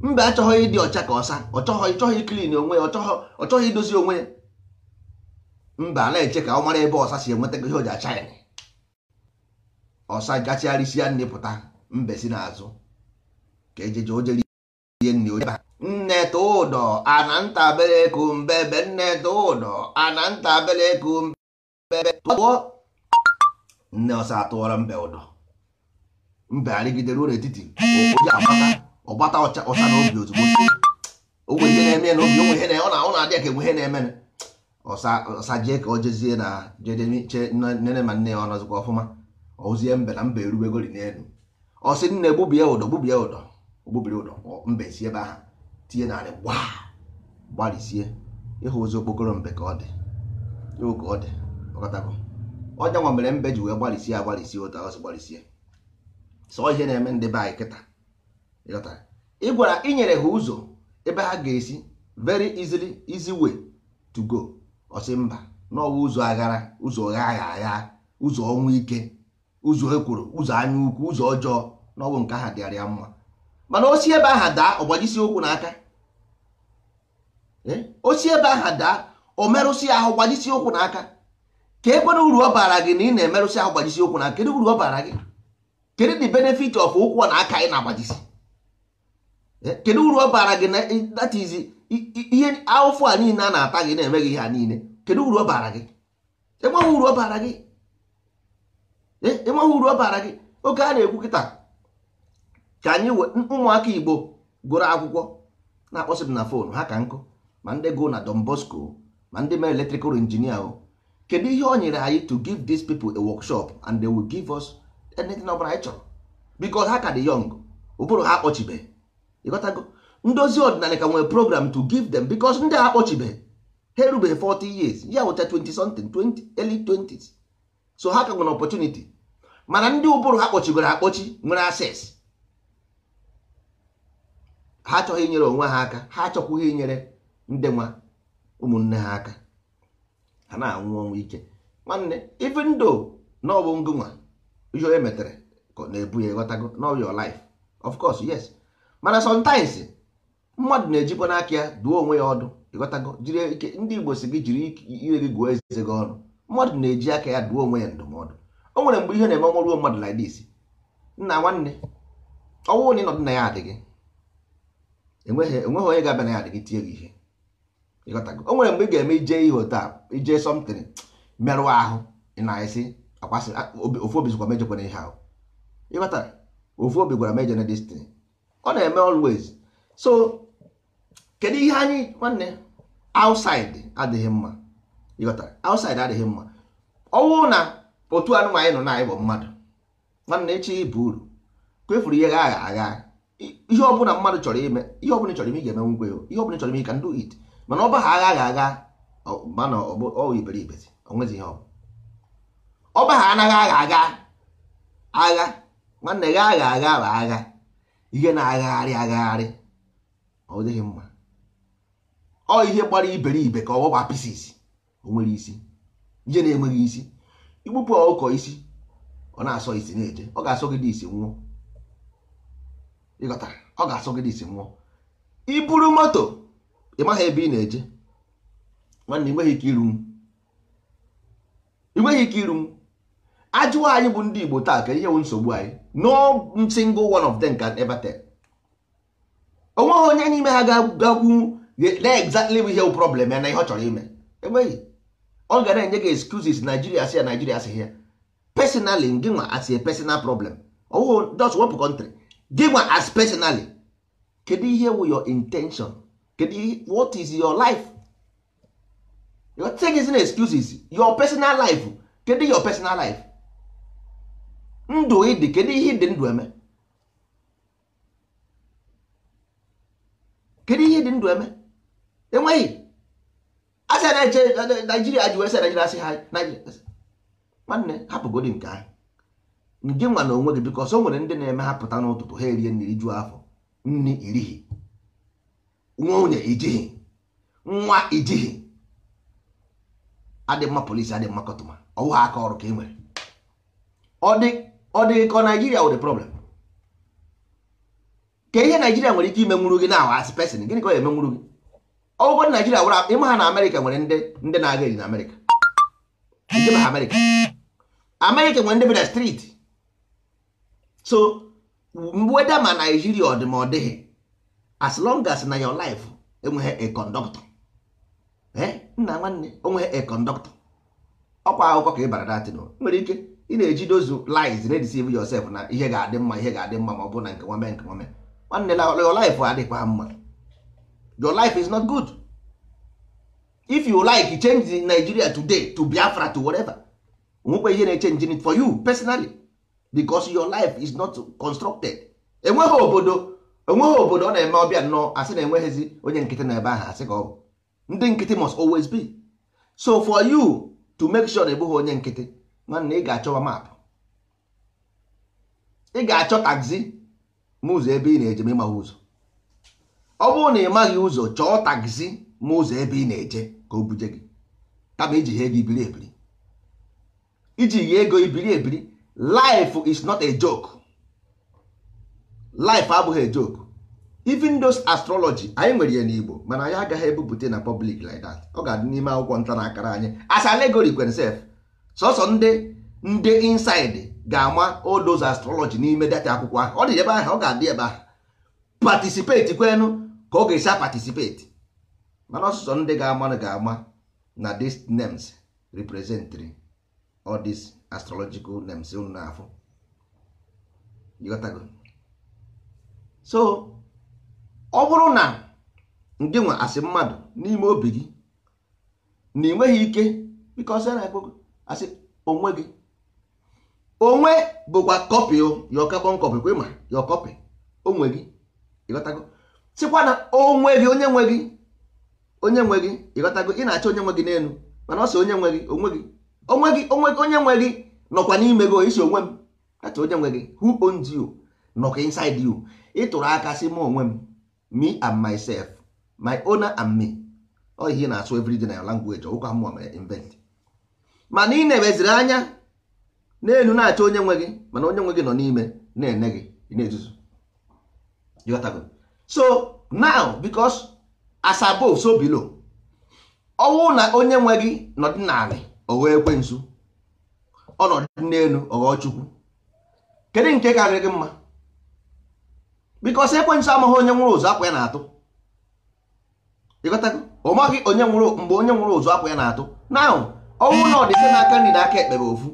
mba achọghị ịdị ọcha ka ọsa ọchọghị chọghị klin onwe ya ọchọghị idozi onwe ya mba na-eche ka ọ mara ebe ọsa si enweta ihe o ji acha ya ọsa gachigharịsịa nne pụta mbe si n'azụ ka ejeje ojere ihe nne onye nne tụ ụdọ ana mbe be. nne tụ ụdọ ana ntabere kumbebe tụọ nne ọsa atụọrọ mbe ụdọ mbe arịgidere ụlọ etiti ụkwụ oji agbata ọgbata ọcha ọcha na obi ozugbo onwe ihe na-eme na obi onwe ihe na ọ na-adị ka enwe ihe na-eme ọsa jee ka ọ jezie na jedeche nne ma nne ya ọ nọzikwa ọfụma ozie mbe na mbe erubegori n'elu ọ sị nne gbubie ụdọ gbubie ụdọ ogbubiri ụdọ mbe si ebe ahụ tinye narị gba gbalịsie ịhụ ozi okpokoro mbe ka ọ dị iwu ka ọ dị ọkọtabụ ọnya nwa mere mbe ji wee gbalisie agbalịsie ụtọ ọsị gbalisie sọ ihe na-eme ndị be anyị kịta ị gwara inyere ha ụzọ ebe ha ga-esi very easily easy way to go ọsị mba n'ọwa ụzọ aghara ụzọ gha agha agha ụzọ ọnwa ike ụzọ ekworo ụzọ anya ukwu ụzọ ọjọọ n'ọwụ nke aha dịara ya mma mana osi ebe aha daa gbajisi ụkwụ n'aka eh? osi ebe aha daa o merụsị ahụ gbajisi ụkwụ n'aka ka ekwere uru ọ bara gị na ị na-emerụsị ahụ gbajisi ụkwụ n'aka kedu uru ọ bara gị kedu the benefit of ụkwụ na aka ị na-agbajisi Eh, kedu uru ọ bara gị that is ihe awụfụ a niile a na-ata gị na-eme gị ha niile kedu uru ọ bara gị enweghị uru ọ bara gị eh, enweghị uru ọ bara gị oge a na-ekwu kịta ka anyị ụmụaka Igbo gụrụ akwụkwọ na-akpọsị m na fon ha ka nkụ ma ndị gụ na Don Bosco ma ndị mere electrical injinia o kedu ihe ọ nyere anyị to give these people a workshop and they will give us anything ọ bụla anyị chọrọ because ha ka dị young ụbụrụ ha akpọchibeghị ịghọtago ndozi ọdịnala ka nwere program to give them because ndị a akpọchibeghị ha erubeghị 40 years ya wụcha 20 something 20 early 20s so ha ka nwere opportunity mana ndị ụbụrụ ha kpọchigoro akpọchi nwere access ha achọghị inyere onwe ha aka ha achọkwughị inyere ndị nwa ụmụnne ha aka ha na-anwụ ọnwụ ike nwanne even though na ọ bụ ngụnwa ihe onye metere ka na-ebu ya ịghọtago na your life of course yes mana sometimes mmadụ na-ejikwa n'aka ya duo onwe ya ọdụ ịghọtago jiri ike ndị igbo si gị jiri ire gị gụọ eze gị ọnụ mmadụ na-eji aka ya duo onwe ya ndụmọdụ o nwere mgbe ihe na-eme ọnwụruo mmadụ like this nna nwanne ọnwụ na ịnọdụ na ya adịghị enweghị onye ga-abịa na ya adịghị tie gị ihe ịghọtago o nwere mgbe ị ga-eme ije ihe otu ije something merụ ahụ na-esi akwasị ofu obi zikwa mejekwana ihe ahụ ịghọtara ofu obi gwara mejọ destin ọ na-eme always so kedu ihe anyị nwanne outside adịghị mma ịghọtara outside adịghị mma ọwụ na otu anụmanụ nọ na bụ mmadụ nwanne echi bụ uru kwefuru ihe agha agha ihe ọbụla mmadụ chọrọ ime ihe ọbụla chọrọ ime ị ga-eme ngwe ihe ọbụla chọrọ ime ka ndụ it mana ọba ha agha agha mana ọ iberibe onwezi ihe ọba ha anaghị agha agha agha nwanne gha agha agha bụ agha ihe na-agagharị agagharị ọ dịghị mma ọ ihe gbara iberibe ka ọ gbagba pieces o nwere isi ihe na-enweghị isi igbupụ ọkụkọ isi ọ na-asọ isi na-eje ọ ga-asọ gị dị isi nwụọ ịghọtara ọ ga-asọ gị isi nwụọ iburu moto ị maghị ebe ị na-eje nwanne ị nweghị ike iru m ajụwa anyị bụ ndị Igbo taa ka ihe bụ nsogbu anyị no single one of them can ever tell onweghị onye n'ime ha ga-agwụ exactly ihe bụ problem ya na ihe ọ chọrọ ime enweghị ọ ga na-enye gị excuses Nigeria si ya Nigeria si ya personally gị nwa as a personal problem ọwụghị just wepụ country gị nwa as personally kedu ihe wụ your intention kedu what is your life your take is excuses your personal life kedu your personal life ndụ ịdị kedu ihe dị ndụ eme kedu ihe dị ndụ eme enweghị asị a na-eche naijiria ji wee sị naijiria asị ha naijiria nwanne hapụgodi nke ahụ ndị nwa na onwe gị biko ọsọ nwere ndị na-eme ha pụta n'ụtụtụ ha erie nri jụọ afọ nri nwa nwunye ijighi nwa ijighi adị mma polisi adị mma kọtụma ọwụ ha aka ọrụ ka e nwere ọ dị ọ dịghị ka naijiria were problem ka ihe naijiria nwere ike ime imenwuru gị na as pesin, gịnị ka ọ emenwuru gị ọgụgụ naijiria were ịma ha na amerịka nwere ndị na-aga eji na amerịka Amerika. Amerika nwere ndị bi na streeti so weda ma naijiria ọ dị ma ọ dịghị as long as na your life enweghị a conductor eh? nna nwanne onweghị a conductor ọkwa akụkọ ka ị bara datin nwere ike ị na-eji dozu lies na deceive yourself na ihe ga-adị mma ihe ga-adị mma ma ọ bụrụ na nke nwame nke nwame nwanne na your life adịkwa mma your life is not good if you like change Nigeria today to Biafra to whatever onwekwa ihe na-echenji it for you personally because your life is not constructed enweghị obodo enweghị obodo ọ na-eme ọbịa nnọọ asị na enweghịzi onye nkịtị na ebe ahụ asị ka ọ ndị nkịtị must always be so for you to make sure na ịbụghị onye nkịtị nwanne ị ga-achọwa maapụ ị ga-achọ taxi ma ụzọ ebe ị na-eje ma ịmaghị ụzọ ọ bụrụ na ị maghị ụzọ chọọ taxi ma ụzọ ebe ị na-eje ka o buje gị kama iji ihe ego ibiri ebiri iji ihe ego ibiri ebiri life is not a joke life abụghị a joke even those astrology anyị nwere ya n'Igbo mana anyị agaghị ebupụta na public like that ọ ga-adị n'ime akwụkwọ nta na akara anyị as allegory kwenself sọsọ ndị ndị inside ga-ama odoz astrology n'ime data akwụkwọ ahụ ọ dị ebe ahụ ọ ga-adị ebe ahụ patisipeti kwenu ka ọ ga-esi patisipeti mana ọsụsọ ndị ga-ama ga-ama na these names representing all these astrological names unu na-afụ so ọ bụrụ na ndị nwe asị mmadụ n'ime obi gị na ị nweghị ike bikọ sị na asị onwe gị onwe bụkwa kọpị ya ọkakpọ nkọpị kwe ma ya kọpị, onwe gị ịghọtago sịkwa na onwe gị onye nwe gị onye nwe gị ịghọtago ị na-achọ onye nwe gị n'elu mana ọ sị onye nwe gị onwe gị onwe gị onwe gị onye nwe gị nọkwa n'ime gị isi onwe m achọ onye nwe gị who owns you nọkwa inside you tụrụ aka sị m onwe m me and myself my owner and me ọ ihe na-asụ everyday na ya language ọgwụkwa mmụọ mere invent mana ị e na-eweziri anya n'elu na acha onye nwe gị mana onye nwe gị nọ n'ime na-ene gị na-ezuzu so now because Asabo above so below ọnwụ na onye nwe gị nọdị n'ala ọghọ ekwensu ọnọdụ n'elu ọghọ chukwu kedu nke karịrị gị mma bikos ekwensu amaghị onye nwụrụ ụzọ akwa ya na-atụ ịghọtago ọ maghị onye nwụrụ mgbe onye nwụrụ ụzọ akwa ya na-atụ now ọnwụ na ọdịsị n'aka nri na aka ekpe bụ ofu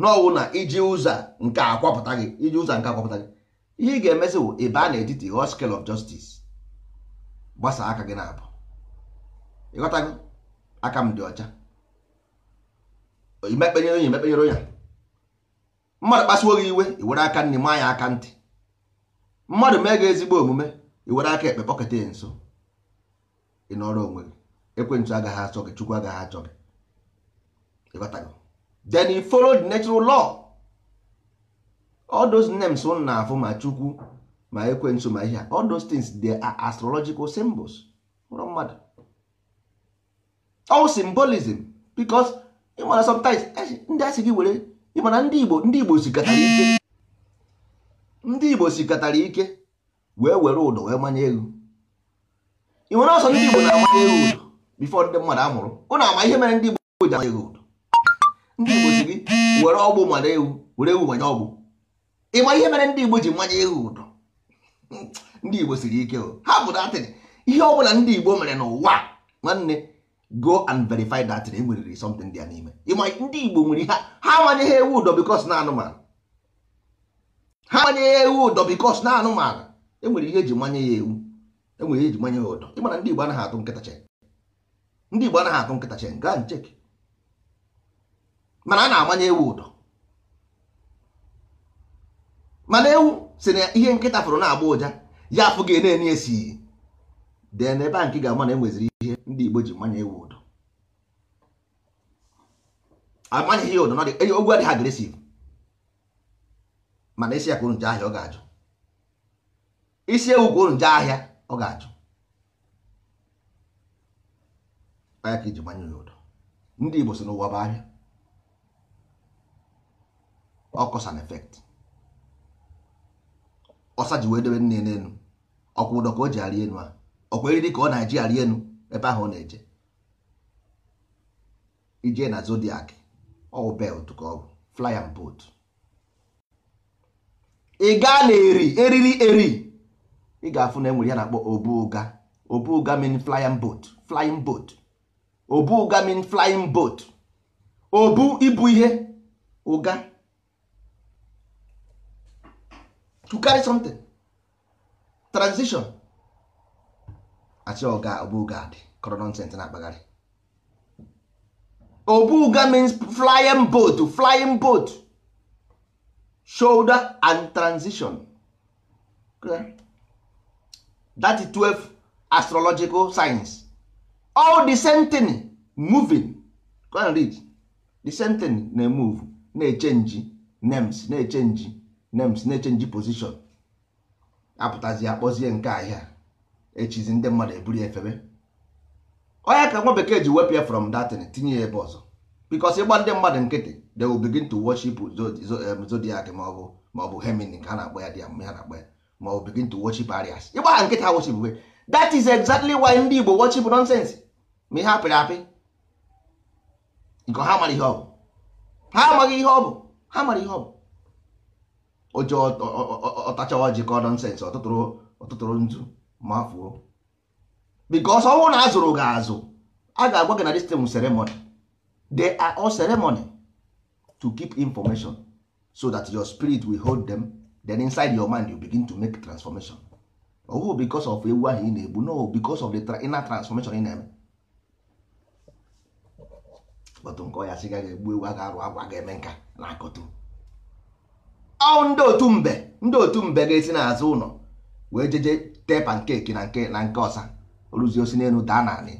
n'ọnwụ na iji ụzọ nke akwapụta gị iji ụzọ nke akwapụta gị ihe ị ga-emezi bụ ebe a na-etiti hot scale of gbasa aka gị na-abụ gị aka m dị ọcha imekpenyere onye emekpenyere onye mmadụ kpasuo gị iwe iwere aka nri maa ya aka ntị mmadụ mee gị ezigbo omume iwere aka ekpe kpọketa ya nso ị nọrọ onwe gị ekwentị agaghị achọ gị chukwu agaghị achọ gị then he followed the natural law all those names unu na-afụ ma chukwu ma ekwensu ma ihe all those things they are astrological symbols ụrọ mmadụ all symbolism because ịmana sometimes ndị asị gị were ịmana ndị igbo ndị igbo sikatara ike ndị igbo sikatara ike wee were ụdọ wee manye elu ị nwere ọsọ ndị igbo na-amanye elu ụdọ before ndị mmadụ amụrụ. mụrụ ụnụ ama ihe mere ndị igbo ji amanye elu ụdọ ndị igbo si gị were ọgbụ mara ewu were ewu manye ọgbụ ịma ihe mere ndị igbo ji mmanya ewu ụdọ ndị igbo siri ike ha bụ datịn ihe ọbụla ndị igbo mere n'ụwa nwanne go and verify datịn e nweriri something dị ya n'ime ịma ndị igbo nwere ha ha manyeghị ewu ụdọ bikos na anụmanụ ha manyeghị ewu ụdọ bikos na anụmanụ enwere ihe eji manye ya ewu enwere ihe eji manye ya ụdọ ịmana ndị igbo anaghị atụ nkịta chen ndị igbo anaghị atụ nkịta chen gaa ncheki mana a na-agbanye ewu ụdọ mana ewu si na ihe nkịta fụrụ na-agba ụja ya afụ gị na-enye esi dee na ebe a nke ga-ama na enweziri ihe ndị Igbo ji manye ewu ụdọ amanyeghị ya ụdọ na ogwu adịghị agresiv mana isi ya kwuru nje ahịa ọ ga-ajụ isi ewu kwuru nje ahịa ọ ga-ajụ ka iji manye ya ụdọ ndị Igbo si n'ụwa bụ ahịa ọ cause and effect ọsa ji wee debe nne n'elu ọkwa ụdọ ka o ji arị elu a ọkwa eriri ka ọ na-eji arị elu ebe ahụ ọ na-eje ije na zodiac ọwụ belt ka ọ bụ fly boat ị gaa na eri eriri eri ị ga-afụ na enwere ya na-akpọ obu ụga obu ụga mean flying boat flying boat obu ụga mean flying boat obu ibu ihe ụga to carry something transition achị oga obuga dị kọrọ nonsens na-akpagharị obuga means flying boat flying boat shoulder and transition that is 12 astrological signs all the same thing moving go and read the same thing na-emove na-echenji names na-echenji names na-echenji position apụtazi akpọzie nke ahịa echizi ndị mmadụ eburu efebe onye ka nwa bekee ji wepụ ya from datin tinye ya ebe ọzọ bikos ịgba ndị mmadụ nkịtị they will begin to worship zodiac ma maọbụ maọbụ hemini ka ha na-akpọ ya dia ha na-akpọ ya ma maọbụ begin to worship arias ịgba ha nkịtị ha worship that is exactly why ndị igbo worship nonsense ma ihe apịrị apị nke ha mara ihe ọ bụ ha amaghị ihe ọ bụ ha mara ihe ọ bụ oje ọtachawa call nọnsensị ọtụtụrụ nzu ma fuo bikos ọnwụ na azụrụ gị azụ a ga-agwa gị na distem ceremony they all ceremony to keep information so that your spirit will hold them then inside your mind you begin to make transformation ọhụ bikos of ewu ahụ ị na-egbu no bikos of the inner transformation ị na-eme kpọtụ nke ọ ya sị ga egbu ewu a ga-arụ agwa ga-eme nka na akọtụ ọ ndị otu mbe ndị otu mbe ga-esi n'azụ ụlọ wee jeje tee pankeki na nke na nke ọsa oruzi osi n'elu daa naanị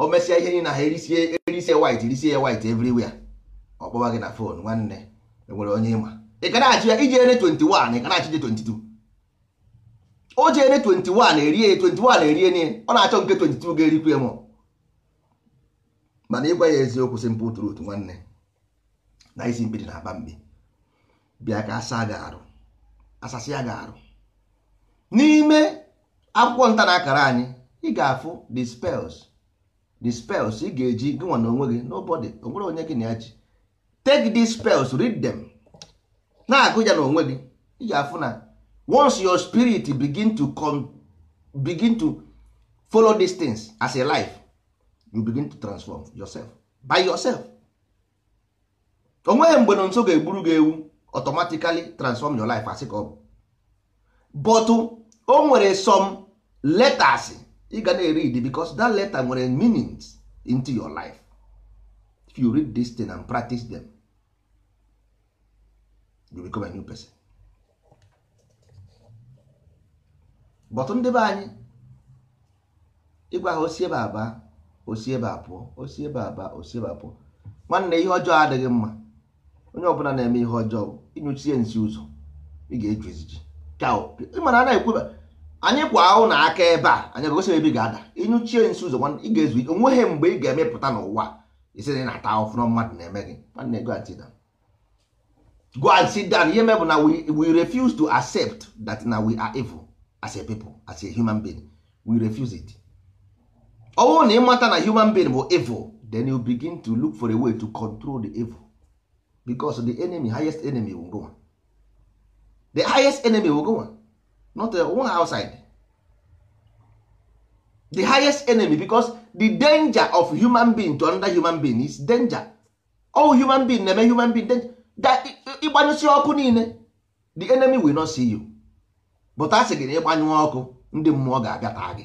o mesịa ihe niile ha erisie erisie white erisie white everywhere ọ kpọwa gị na fon nwanne enwere onye ịma ị ka na-achị ya iji ene 21 ị ka na-achị je 22 o ji ene 21 erie 21 erie niile ọ na-achọ nke 22 ga-erikwu m? mana ịgwa ya eziokwu simple truth nwanne na isi mkpidi na-aba mbi bịa ka asa ga arụ asasịa ga arụ n'ime akwụkwọ nta na akara anyị ị ga-afụ the spells the spells ị ga-eji gị nwa na onwe gị nobody onwere onye gị na ya ji take these spells read them na-agụ ya na gị ị ga-afụ na once your spirit begin to come, begin to follow these things as a life you begin to transform yourself by yourself onweghị mgbe na nso ga-egburu gị ewu automatically transform your life as ka ọ bụ but oh, o nwere some letters ị ga na-read because that letter nwere meanings into your life if you read this thing and practice them you become a new person but ndị be anyị ịgwa ha osi ebe aba osi ebe abụọ osi ebe aba osi ebe abụọ nwanne ihe ọjọọ adịghị mma onye ọbụla na-eme ihe ọjọọ ịnyụchie nsi ụzọ ị ga-eju eziji mana a na-ekwuba anyị kwa ahụ na aka ebe a anyị gosi ebe ị ga-ada ịnyụchie nsi ụzọ ị ga-ezu ike onweghị mgbe ị ga-emepụta n'ụwa isi na na-ata ahụfụ na mmadụ na-eme gị nwanne go and sit down go and sit down ihe mebụ na we refuse to accept that na we are evil as a people as a human being we refuse it ọ bụrụ na ịmata na human being bụ evil then you begin to look for a way to control the evil because the enemy highest enemy will go the highest enemy will go not the uh, one outside the highest enemy because the danger of human being to another human being is danger all human being na-eme human being danger that ịgbanyụsi ọkụ niile the enemy will not see you but a sị gị na ịgbanyụ ọkụ ndị mmụọ ga-abịa taa gị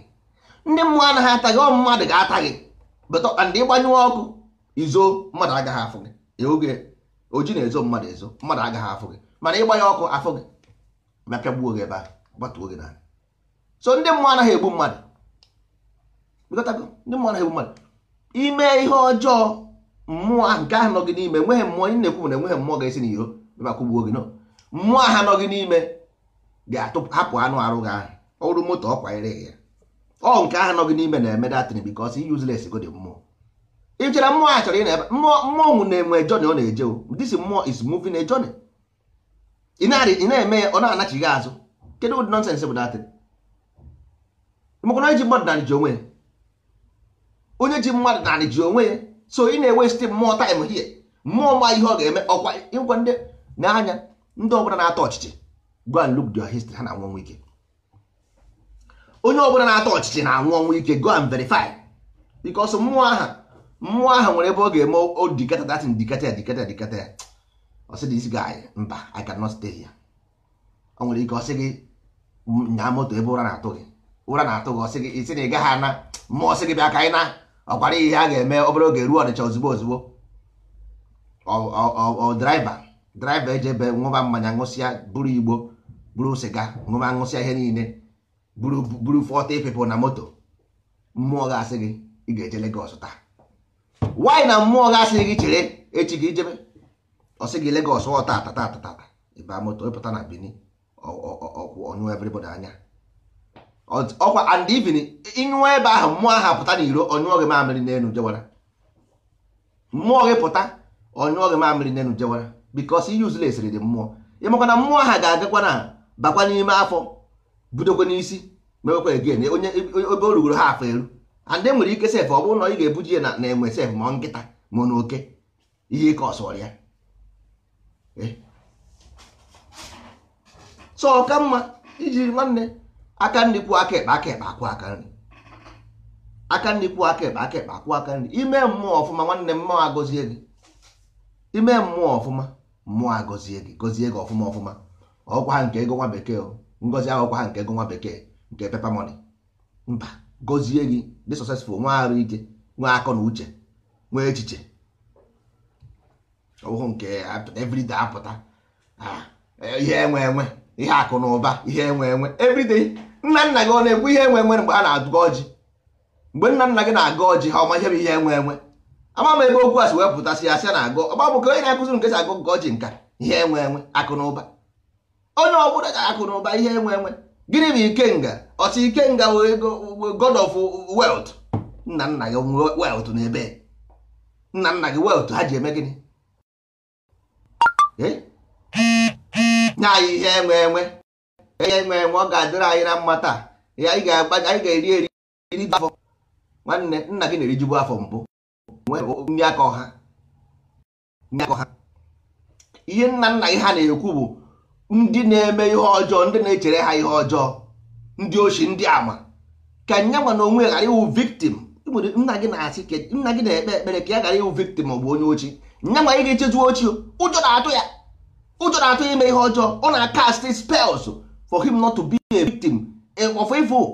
ndị mmụọ anaghị ata gị ọ mmadụ ga-ata gị but and ịgbanyụ ọkụ izo mmadụ agaghị afụ gị oge oji na-ezo mmadụ ezo mmadụ agaghị afụ gị mana ịgba ya ọkụ afụ gị mapịa gbuo gị ebe a gbatuo gị so ndị mmụọ anaghị egbu mmadụ ndị mmụọ anaghị egbu mmadụ ime ihe ọjọọ mmụọ nke ahụ nọ gị n'ime enweghị mmụọ ị na-ekwu na enweghị mmụọ ga-esi n'iro bakụgbuo gị nọ mmụọ aha nọ gị n'ime ga-hapụ anụ arụ gị ahụ ọrụ moto ọ kwanyere gị ya ọ nke ahụ nọ gị n'ime na-eme datin bikos useless go dị mmụọ ị mmụọ a chọrọ ị na-ebe mmụọ mmụọ na-enwe jọni ọ na-eje this mmụọ is moving a ị na-eme ya ọ na-anachighị azụ kedu ụdị nọnsensị bụ datịrị mekwana onye ji mmadụ narị ji onwe ya onye ji mmadụ narị ji onwe ya so ị na-ewesti mmụọ taịm hie mmụọ ma ihe ọ ga-eme ọkwa ịgwa ndị na-anya ndị ọbụla na-atọ ọchịchị go and look their history ha na-anwụ ọnwụ ike onye ọbụla na-atọ ọchịchị na-anwụ ọnwụ ike go and verify because mmụọ aha mmụọ ahụ nwere ebe ọ ga-eme odikata datin dikata ya dikata ya dikata ya ọ sị this mba i cannot stay here ọ nwere ike ọ sị gị nyaa moto ebe ụra na-atụ gị ụra na-atụ gị ọ sị gị isi na ị gaghị ana mmụọ ọsị gị bịa ka ịna na ọkwara ihe a ga-eme obere oge ruo ọnịcha ozugbo ozugbo ọ draiva draiva eji ebe ṅụba mmanya ṅụsịa buru igbo buru sịga ṅụba ṅụsịa ihe niile buru buru 40 people na moto mmụọ ga-asị gị ị ga-eje legos taa wanyị na mmụọ ga asịghị gị chere echi gị ijebe ọsị gị Lagos ọ tata tata tata ịba moto ịpụta na Benin ọkwụ ọnyụọ everybody anya ọkwa and even ịnyụọ ebe ahụ mmụọ ahụ pụta na iro ọnyụọ gị mamịrị n'elu jewara mmụọ gị pụta ọnyụọ gị mamịrị n'elu jewara because useless dị mmụọ ịmakwa na mmụọ ahụ ga-agakwa na bakwa n'ime afọ budokwa n'isi mewekwa again onye ebe o rugoro ha afọ eru and nwere ike sef ọ bụrụ na ị ga-ebuji ya na enwe sef ma nkịta ma n'oke ihe ike ọsọrọ ya so ọka mma ijiri nwanne aka nri kwuo aka ekpe aka ekpe akwụ aka nri aka nri aka ekpe aka ekpe akwụ aka nri ime mmụọ ọfụma nwanne mmụọ agọzie gị ime mmụọ ọfụma mmụọ agọzie gị gọzie gị ọfụma ọfụma ọgwa ha nke ego nwa bekee o oh. ngozi ahụkwa ha nke ego nwa bekee nke pepa moni mba gozie gị dị sọsesfụl nwe arụ ike nwe akọ na uche nwee echiche ọbụghụ nke everyday apụta ah, ihe enwe enwe ihe akụ na ụba ihe enwe enwe everyday nna nna gị ọ na-ekwu ihe enwe enwe mgbe a na-agụ ọjị mgbe nna nna gị na-agụ ọjị ha ọma ihe bụ ihe enwe enwe ama m ebe okwu a si wepụtasị ya sị na agụ ọgba bụ ka onye na-akụziri nke si agụ nke ọjị nka ihe enwe enwe akụ na ụba onye ọ bụla ga akụ na ụba ihe enwe enwe gịnị bụ ike nga. ọchị ikenga wee god of wealth nna nna gị wealth n'ebe nna nna gị wealth ha ji eme gịnị eh? nye anyị ihe enwe enwe ihe enwe enwe ọ ga-adịrị anyị na mma taa anyị ga-eri eri iri afọ nwanne nna gị na-erijubu afọ mbụ nri aka ọha ihe nna nna gị ha na-ekwu bụ ndị na-eme ihe ọjọọ ndị na-echere ha ihe ọjọọ ndị ochi ndị ama ka nyanwa na onwe ghara ịwụ victim nna gị na-asị ka nna gị na-ekpe ekpere ka ya ghara ịwụ victim ọ bụ onye ochi nyanwa ị ga-echezu ochie ụjọ na-atụ ya ụjọ na-atụ ya ime ihe ọjọọ ọ na-akast spells for him not to be a victim eh, of evil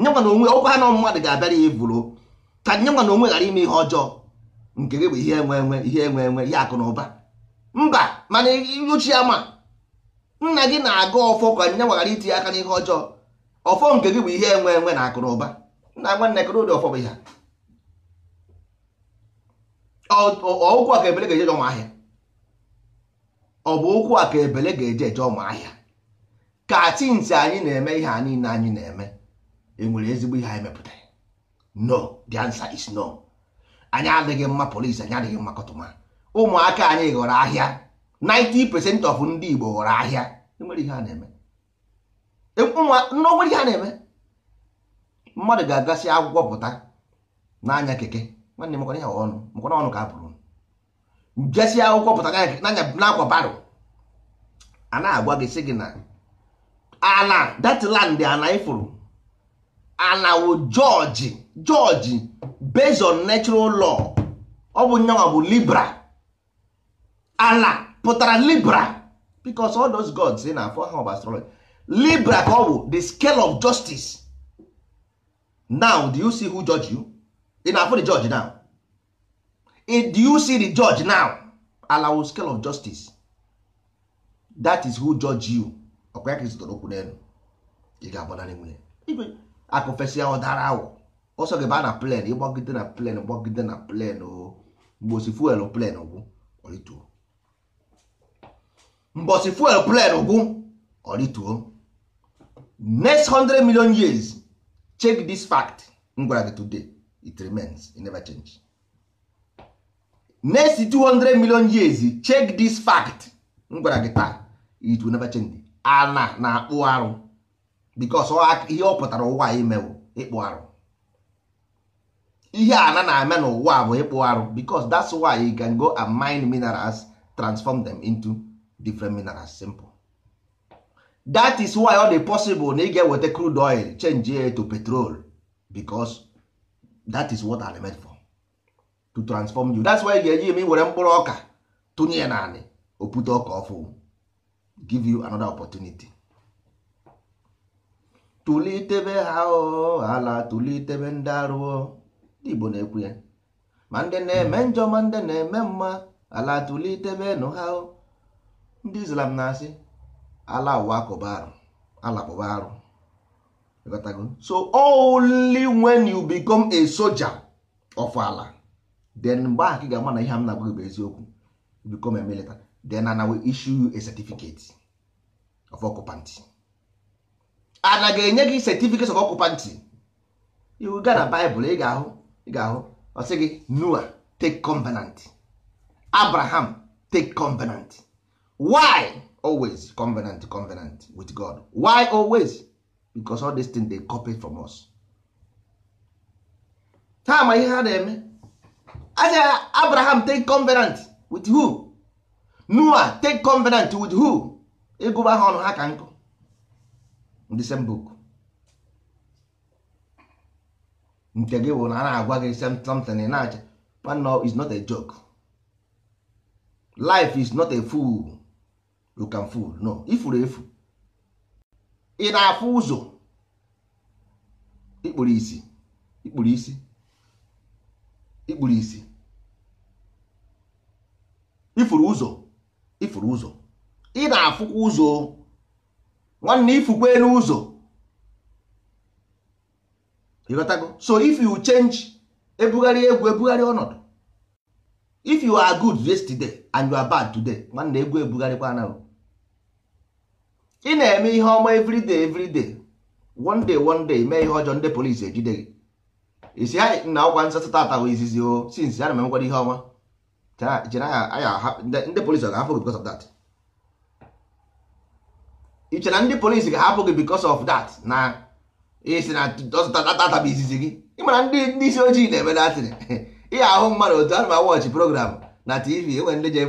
nyanwa na onwe ọkwa ha na mmadụ ga-abịara ya evuro ka nyanwa na onwe ghara ime ihe ọjọọ nke gị bụ ihe enwe enwe ihe enwe enwe ihe akụ na ụba mba mana ochi ama nna gị na-aga ọfọ ka nyanwa ghara itinye aka n'ihe ọjọọ ọfọ nke gị bụ ihe enwe enwe na akụrụba nna nwanne kụrụ ụdị ọfọ bụ ihe ụkwụ a ebele ga-eje ụmụ ahịa ọ bụ ụkwụ a ka ebele ga-eje eje ụmụ ahịa ka tinsi anyị na-eme ihe a niile anyị na-eme enwere ezigbo ihe anyị mepụtara no the answer is no anyị adịghị mma polisi anyị adịghị mma kọtụma ụmụaka anyị ghọrọ ahịa 90 percent of ndị Igbo ghọrọ ahịa enwere ihe a na-eme n'onwere ihe a na-eme mmadụ ga-agasị akwụkwọ pụta n'anya keke nwanne mekwana ya ọnụ mekwana ọnụ ka bụrụ jesị akwụkwọ pụta n'anya n'akwa baro a na-agwa gị sị gị na ala datland ana ifuru ana wụ jọji jọji based on lọ ọ bụ nyanwa bụ libra ala pụtara libra because all those gods na-afọ ha bụ astrology libra ka ọ bụ the scale of justice now do you see who judge you ị na-afụ the judge now do you see the judge now allow scale of justice that is who judge you ọkwa ya ka ịzụtara okwu n'elu ị ga-agbanarị nwunye akụfesịa ọ dara awọ ọsọ gị baa na plen ịgbagide na plen gbagide na plen mgbosi fuel plen gwụ ọrịtuo mgbosi fuel plen gwụ ọrịtuo next 100 million years check this fact m gwara today it remains it never change next 200 million years check this fact m gwara gị taa it will never change ana na-akpụ arụ because ihe ọ pụtara ụwa imewo ịkpụ arụ ihe ana na-eme n'ụwa bụ ịkpụ arụ because that's why you can go and mine minerals transform them into different minerals simple that is why ọ dị possible na ị e ga-eweta crude oil change it to petrol because that is what I'm meant for to transform you that's why ị e ga-eji eme were mkpụrụ ọka tụnye ya naanị opute ọka ọfụ give you another opportunity tulitebe ha ala tulitebe ndị ndị Igbo na-ekwu ya ma ndị na-eme njọ ma ndị na-eme mma ala tulitebe nụ ha ndị Islam na-asị ala ụwa kụba arụ ala kụba so only when you become a soldier of ala then mgbe ahụ ga-ama na ihe m na-agwa gị bụ eziokwu become a military then ana issue you a certificate of occupancy ana ga-enye gị certificate of occupancy you ga na Bible ị ga-ahụ ị ga-ahụ ọ gị Noah take covenant Abraham take covenant why always covenant covenant with god why always because all these things they copy from us ha ma ihe ha na-eme aja abraham take covenant with who noah take covenant with who ịgụba ha ọnụ ha ka nkụ the same book nke gị bụ na a na-agwa gị something na-acha is not a joke life is not a fool you can no ifuru efu ị na-afụ ụzọ ikpuru isi ikpuru isi ikpuru isi ifuru ụzọ ifuru ụzọ ị na-afụkwa ụzọ nwanne ifukwe n'ụzọ ịghọtago so if you change ebugharị egwu ebugharị ọnọdụ if you are good yesterday and you are bad today nwanne egwu ebugharịkwa anaghị ị na-eme ihe ọma everyday everyday one day one day mee ihe ọjọọ ndị polisi ejide gị isi ha na ọgwa nsatụ tata bụ izizi o since ya na emekwara ihe ọma ndị polisi ga-ahapụ gị because of that ị chere na ndị polisi ga-ahapụ gị because of that na isi na tata bụ izizi gị ị mara ndị isi ojii na-eme datịrị ihe ahụ mmadụ otu anụma wọchị program na tv enwere ndị je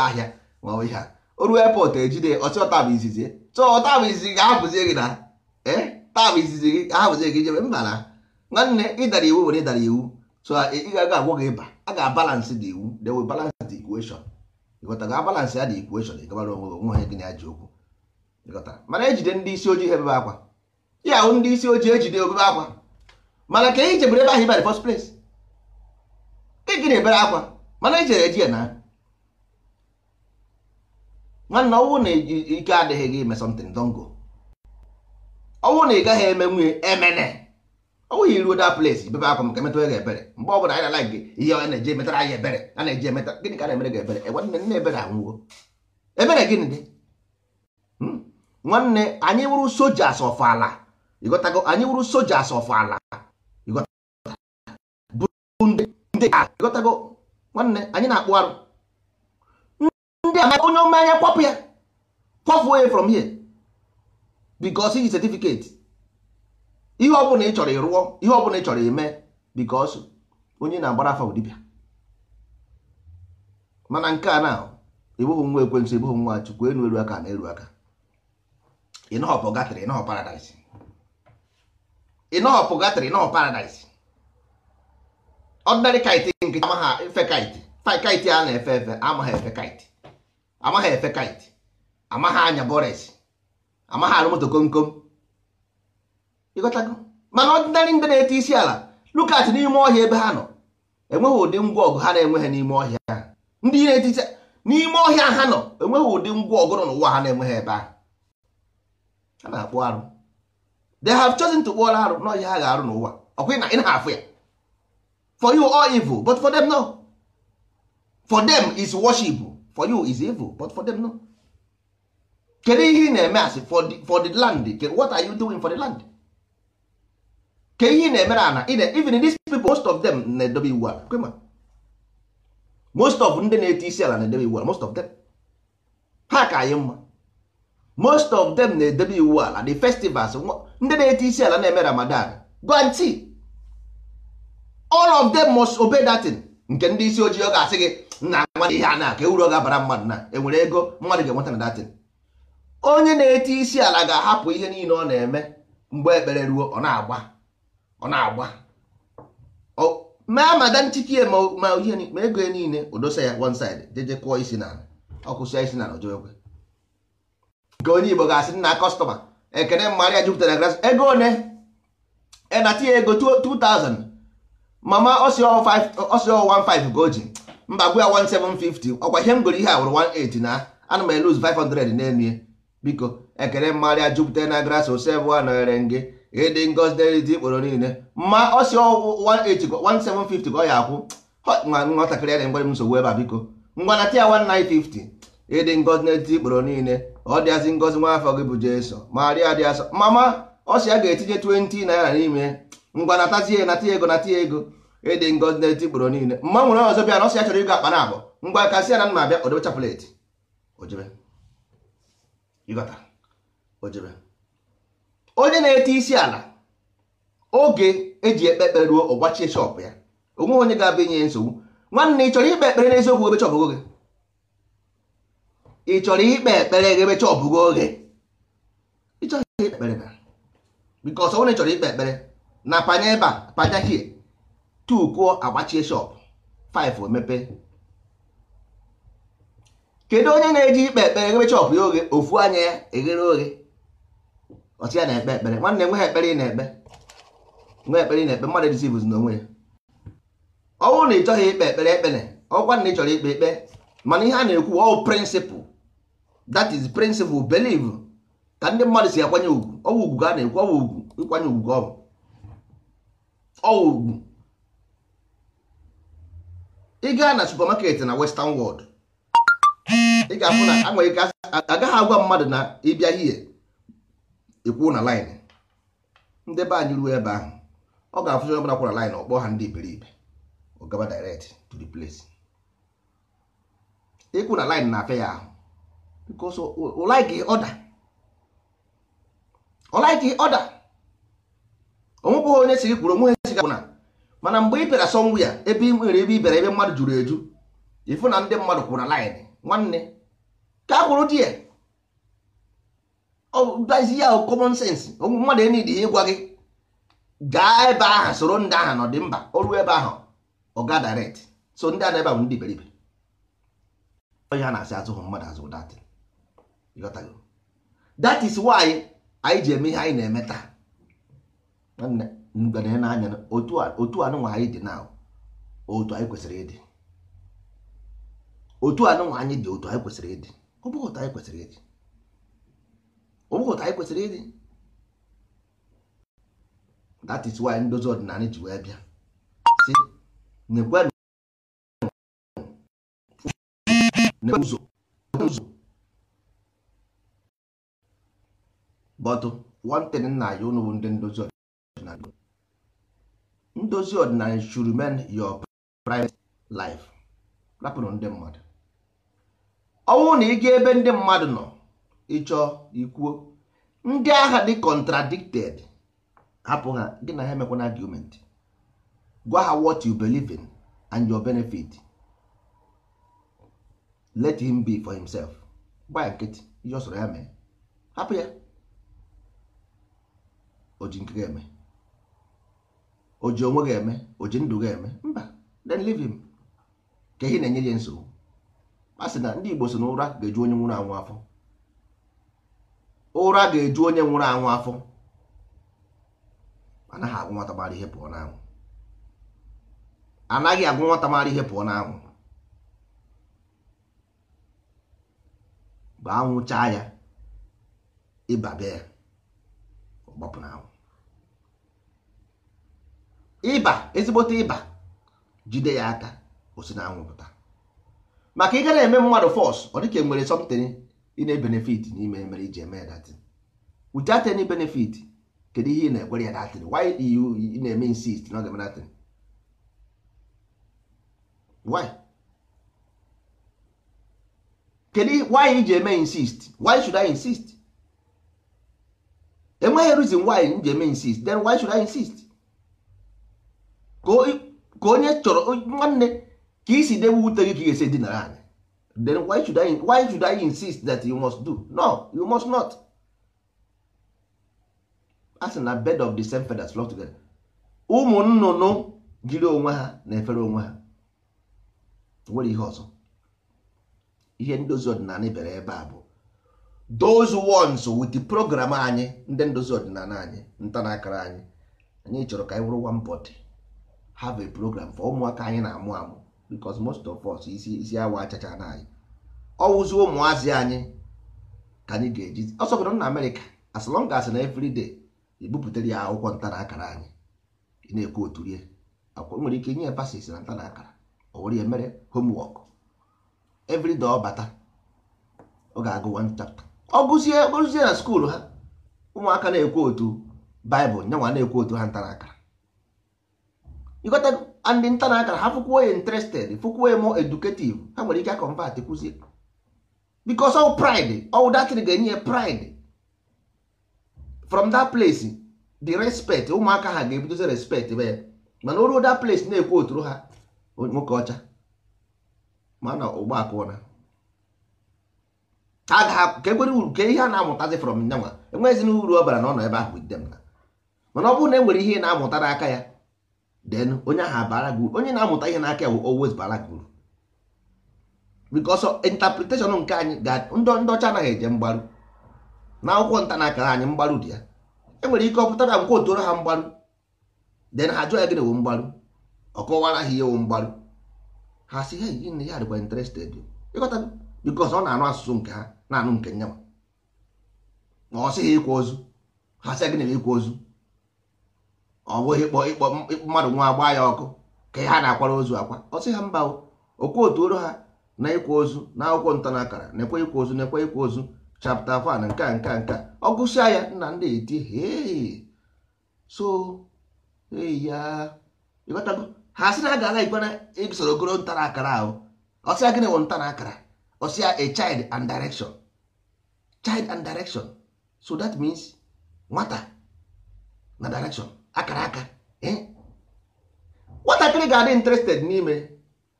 ahịa ma ihe a oru epọt ejide ọsịọ tab izizi so tab izizi ga-ahapụzie gị na eh, tab izizi gị ahapụzie gị jebe mba na nwanne ịdara iwu were ịdara iwu so ị ga-aga agwọ gị ịba a ga-abalansị dị iwu they will balance the equation ịghọtara abalansị ya dị equation ịgabara onwe gị onwe ha gị na-aji okwu ịghọtara mana ejide ndị isi ojii ha ebebe akwa ya ahụ ndị isi ojii ejide obebe akwa mana ka ị jebere ebe ahụ ịba the first place gịnị ebere akwa mana ejere eji ya na nwanne ọnwụ na ike adịghị gị ime something don go ọnwụ na ị gaghị eme nwunye emene ọnwụ ya iruo that place bebe akwa maka emetụrụ gị ebere mgbe ọ bụla anyị na gị ihe ọ na-eji emetara anyị ebere a na-eji emeta gịnị ka na-emere gị ebere nwanne nne ebere anwụgo ebere gịnị dị hmm? nwanne anyị wụrụ soja asọfọ ala ịghọtago anyị wụrụ soja asọfọ ala ịghọtago nwanne anyị na-akpụ arụ ndị amaka onye mmanya kwapụ ya kwapụ onye from here because iji certificate ihe ọbụla ị chọrọ ịrụọ ihe ọbụla ị chọrọ ime because onye na-agbara afa dibịa mana nke a na ebughị nwa ekwensu ebughị nwa chukwu enu elu aka na elu aka ịnọhọpụ gatịrị ịnọhọ paradise ịnọhọpụ gatịrị ịnọhọ paradise ọdịnarị kaịtị nke amaghị efe kaịtị kaịtị a na-efe efe amaghị efe kaịtị amaghị efe kite amaghị anya bores amaghị arụ moto kom kom ịghọtago mana ọdịnarị ndị na-ete isi ala lukat n'ime ọhịa ebe ha nọ enweghị ụdị ngwa ọgụ ha na-enweghị n'ime ọhịa ndị na-ete isi n'ime ọhịa ha nọ enweghị ụdị ngwa ọgụ nọ n'ụwa ha na-enweghị ebe ahụ ha na-akpụ arụ they have chosen to kpụọrọ arụ n'ọhịa ha ga-arụ n'ụwa ọkwa na ị na-afụ ya for you all evil but for them no for them is worship for you is evil but for them no kedu ihe ị na-eme asị for the land what are you doing for the land ke ihe ị na-emere ana even these people most of them na-edobe iwu ala kwema most of ndị na-eti isi ala na-edobe iwu ala most of them ha ka anyị mma most of them na-edobe iwu ala the festivals ndị na-eti isi ala na-eme ramadan guarantee all of them must obey that thing nke ndị isi ojii ọ ga-asị gị nna nwa ihe a na-aka e uru ọ ga-abara mmadụ na enwere ego mmadụ ga-enweta na datin onye na-eti isi ala ga-ahapụ ihe niile ọ na-eme mgbe ekpere ruo ọ na-agba ọ na-agba ma mada nchikie ma ihe ma ego ya niile odosa ya one side jeje kụọ isi na ọkụsịa isi na ojoekwe nke onye Igbo ga-asị nna kọstọma ekene mmadụ ya jupụtara gras ego one na tinye ego 2000 mama ọsịọ 15 ga o ji mba gwa ya 1750 ọkwa ihe m goro ihe a wụrụ 18 na ana m eluz 500 na-emie biko ekele mmarịa jupụta na gras osebụ a nọnyere gị ịdị ngozi dị ikporo niile ma ọ si 1750 ka ọ ya akwụ nwa nwatakịrị ya na ngwere m nsogbu ebe a biko ngwana tia 1950 ịdị ngozi na ikporo niile ọ dịazị ngozi nwa afọ gị bụ jeso maria dị asọ mama ọ ya ga-etinye 20 naira n'ime ngwa natazie nata ego nata ego ịdị ngozi na-eti gboro niile mma nwere ọzọ bịa na ọsọ ya chọrọ ịgo akpa na abụọ ngwa aka si ya na nna abịa odebe chapụletị ojebe ịghọta onye na-eti isi ala oge eji ekpe ekpere ruo ọgbachie shọpụ ya onweghị onye ga-abịa inye nsogbu nwanne ị chọrọ ikpe ekpere n'eziokwu ebe chọpụgo gị ị chọrọ ikpe ekpere gị ebe chọpụgo oge ịchọghị ikpe ekpere na bikọs onye chọrọ ikpe ekpere na panye ebe a panya hie two kụọ agbachie shop five emepe kedu onye na-eji ikpe ekpere eghere chọp ya oghe ofu anya ya eghere oghe ọchị ya na-ekpe ekpere nwanne nwe ha ekpere ị na-ekpe nwe ekpere ị na-ekpe mmadụ dịzi bụzi n'onwe ya ọ bụrụ na ị chọghị ikpe ekpere ekpere ọkwa na ị chọrọ ikpe ekpe mana ihe a na-ekwu ọ prịnsịpụl that is prịnsịpụl believe ka ndị mmadụ si akwanye ugwu ọwụ ugwu ka na-ekwu ọwụ ugwu ịkwanye ugwu ọwụ ugwu ị gaa na supamaketi na western world ị ga-afụ na nwere ike agaghị agwa mmadụ na ịbịa hie ikwu na line ndị be anyị ruo ebe ahụ ọ ga-afụzi onye ọbụla kwara line ọkpọ ha ndị iberibe ọ gaba direct to the place ikwu na line na-afịa ya ahụ because ọ like order ọ like order onwekwụghị onye siri kwuru onweghị siga kwụ na mana mgbe ị bịara ya ebe ị nwere ebe ị bịara ebe mmadụ juru eju ịfụ na ndị mmadụ kwụrụ na line nwanne ka a kwụrụ di ya ọdazi ya common sense ogwụ mmadụ enidi ihe ịgwa gị gaa ebe ahụ soro ndị ahụ nọ dị mba oru ebe ahụ ọga direct so ndị ana ebe ahụ ndị beribe onye ha na-asị azụghị mmadụ azụ that is why anyị ji eme ihe anyị na-eme taa nwanne ngane n'anya otu otu anụnwa anyị dị na otu anyị kwesịrị ịdị otu anụnwa anyị dị otu anyị kwesịrị ịdị ọ otu anyị kwesịrị ịdị ọ otu anyị kwesịrị ịdị that is why ndozi ọdịnala ji wee bịa si nekwenụ ụzọ ụzọ bọtụ one nna anyị ụnụ bụ ndị ndozi ndozi ọdịnala should remain your private life rapụrụ ndị mmadụ ọnwụ na ịga ebe ndị mmadụ nọ ịchọ ikwuo ndị agha dị contradicted hapụ ha gị na ha emekwana argument gwa ha what you believe in and your benefit let him be for himself gba nkịtị ihe ọ sọrọ ya mee hapụ ya o ji eme o ji onwe ga-eme o ji ndụ ga-eme mba then livin ka ihe na-enye ya nsogbu a na ndị Igbo so na ụra ga-eju onye nwụrụ anwụ afọ ụra ga-eju onye nwụrụ anwụ afọ anaghị agwụ nwata mara ihe pụọ n'anwụ anaghị agwụ nwata mara ihe pụọ n'anwụ mgbe anwụ chaa ya ịba bịa ya ọgbapụ ịba ezigbote ịba jide ya aka osi na anwụ maka ị gara eme mmadụ fọs ọ dịka e nwere something ị na-ebenefit n'ime mere iji eme datin without any benefit kedu ihe ị na-ekwere ya datin why ị na-eme insist na ọ ga-eme datin why kedu why iji eme insist why should I insist enweghị reason why m ji eme insist then why should I insist ka onye chọrọ nwanne ka isi debe ute gị ka ị ga-esi dinara anyị then why should I, why should I insist that you must do no you must not a na bed of the same feathers flock together ụmụ nnụnụ jiri onwe ha na-efere onwe ha nwere ihe ọzọ ihe ndozi ọdịnala bere ebe a bụ those ones with the program anyị ndị ndozi ọdịnala anyị ntanakara anyị anyị chọrọ ka anyị wụrụ one body have a program for ụmụaka anyị na-amụ amụ because most of us isi isi awa achacha na anyị ọwụzi ụmụazị anyị ka anyị ga-eji ọsọgodo na amerịka as long as na every ebupụtara ya akwụkwọ ntara akara anyị ị na-ekwu otu rie akwụkwọ nwere ike nye pasis na ntara akara o were ya mere homework every day ọ bata ọ ga-agụ one chapter ọ gụzie gụzie na skuulu ha ụmụaka na-ekwu otu baịbụl nyanwa na-ekwu otu ha ntara akara ịgotago and nta na akara ha fụkwuo ya interested fụkwuo ya more educative ha nwere ike akọmpat kwụzi because all pride all that ga-enye ya pride from that place the respect ụmụaka ha ga-ebidozi respect be ya mana oruo that place na-ekwu oturu ha nwoke ọcha mana ụgbọ akụna ha ga-ka ekwere uru ka ihe a na-amụtazi from nyanwa enweghịzi na uru ọ bara na ọ nọ ebe ahụ with them na mana ọ bụrụ na e nwere ihe ị na-amụta n'aka ya then onye ahụ bara gị onye na-amụta ihe n'aka bụ always bara gị uru because interpretation nke anyị ndị ọcha anaghị eje mgbaru na akwụkwọ nta na akara anyị mgbaru dị ya enwere ike ọ pụtara nkwa otoro ha mgbaru then ha jụọ ya gịnị wụ mgbaru ọ kọwara ha ihe wụ mgbaru ha si hey gịnị ya dịkwa interested ịghọta because ọ na-anụ asụsụ nke ha na-anụ nke nyanwa na ọ sị ha ozu ha sị gịnị ịkwa ozu ọ bụghị ịkpọ ịkpọ mmadụ nwa agba ya ọkụ ka ha na-akwara ozu akwa ọ sị ha mba okwu otu oro ha na ịkwa ozu na akwụkwọ ntanakara na-ekwe ịkwa ozu na-ekwe ịkwa ozu chapta afọ nke a nke a ọ gụsịa ya nna ndị eti hei so ya ịghọtago ha sị na a gara ikpe na isoro e ogoro ntara akara ahụ ọsịa gịnị wụ ntara akara ọsịa a child and direction child and direction so that means nwata na direction akara aka e? nwatakịrị ga-adị interested n'ime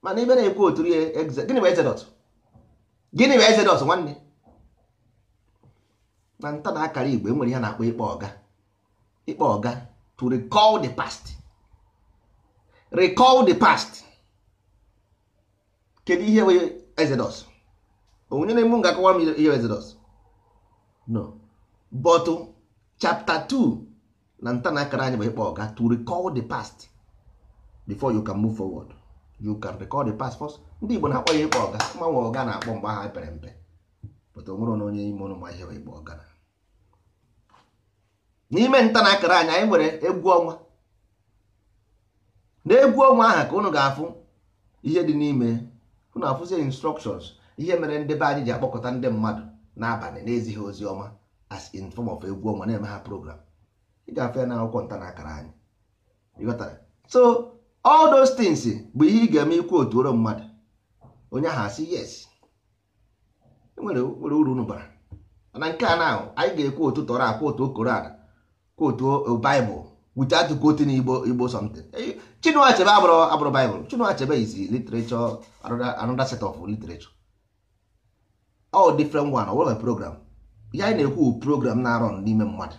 mana ibe na-ekwu otu ihe gịnị bụ exodus gịnị bụ exodus nwanne na nta na akara igbo enwere ya na-akpọ ịkpọ ọga ịkpọ ọga to recall the past recall the past kedu ihe bụ exodus onye na-emu ga-akọwa m ihe exodus no but chapter 2 na nta na akara anyị bụ ịkpọ ọga to recall the past before you can move forward you can recall the past first ndị Igbo na-akpọ ya ịkpọ ọga mmanwe ọga na-akpọ mgbe aha pere mpe pụta onwere na onye ime ụlọ ma ịkpọ ọga n'ime nta na akara anyị anyị nwere egwu ọnwa na egwu ọnwa aha ka unu ga-afụ ihe dị n'ime unu afụzie instructions ihe mere ndị be anyị ji akpọkọta ndị mmadụ n'abalị na-ezighị ozi ọma as in form of egwu ọnwa na-eme ha program ị ga-afụ ya n'akwụkwọ nta na akara anyị ịghọtara so all those things bụ ihe ị ga-eme ikwu otu mmadụ onye ahụ asị yes e nwere uru unu bara mana nke a na anyị ga-ekwu otu tọrọ akwa otu koran kwa otu baịbụl wute atụkọ igbo something Chinua Achebe abụrụ abụrụ baịbụl Chinua Achebe is literature another set of literature all different one ọ program ihe anyị na-ekwu program na-arọ n'ime mmadụ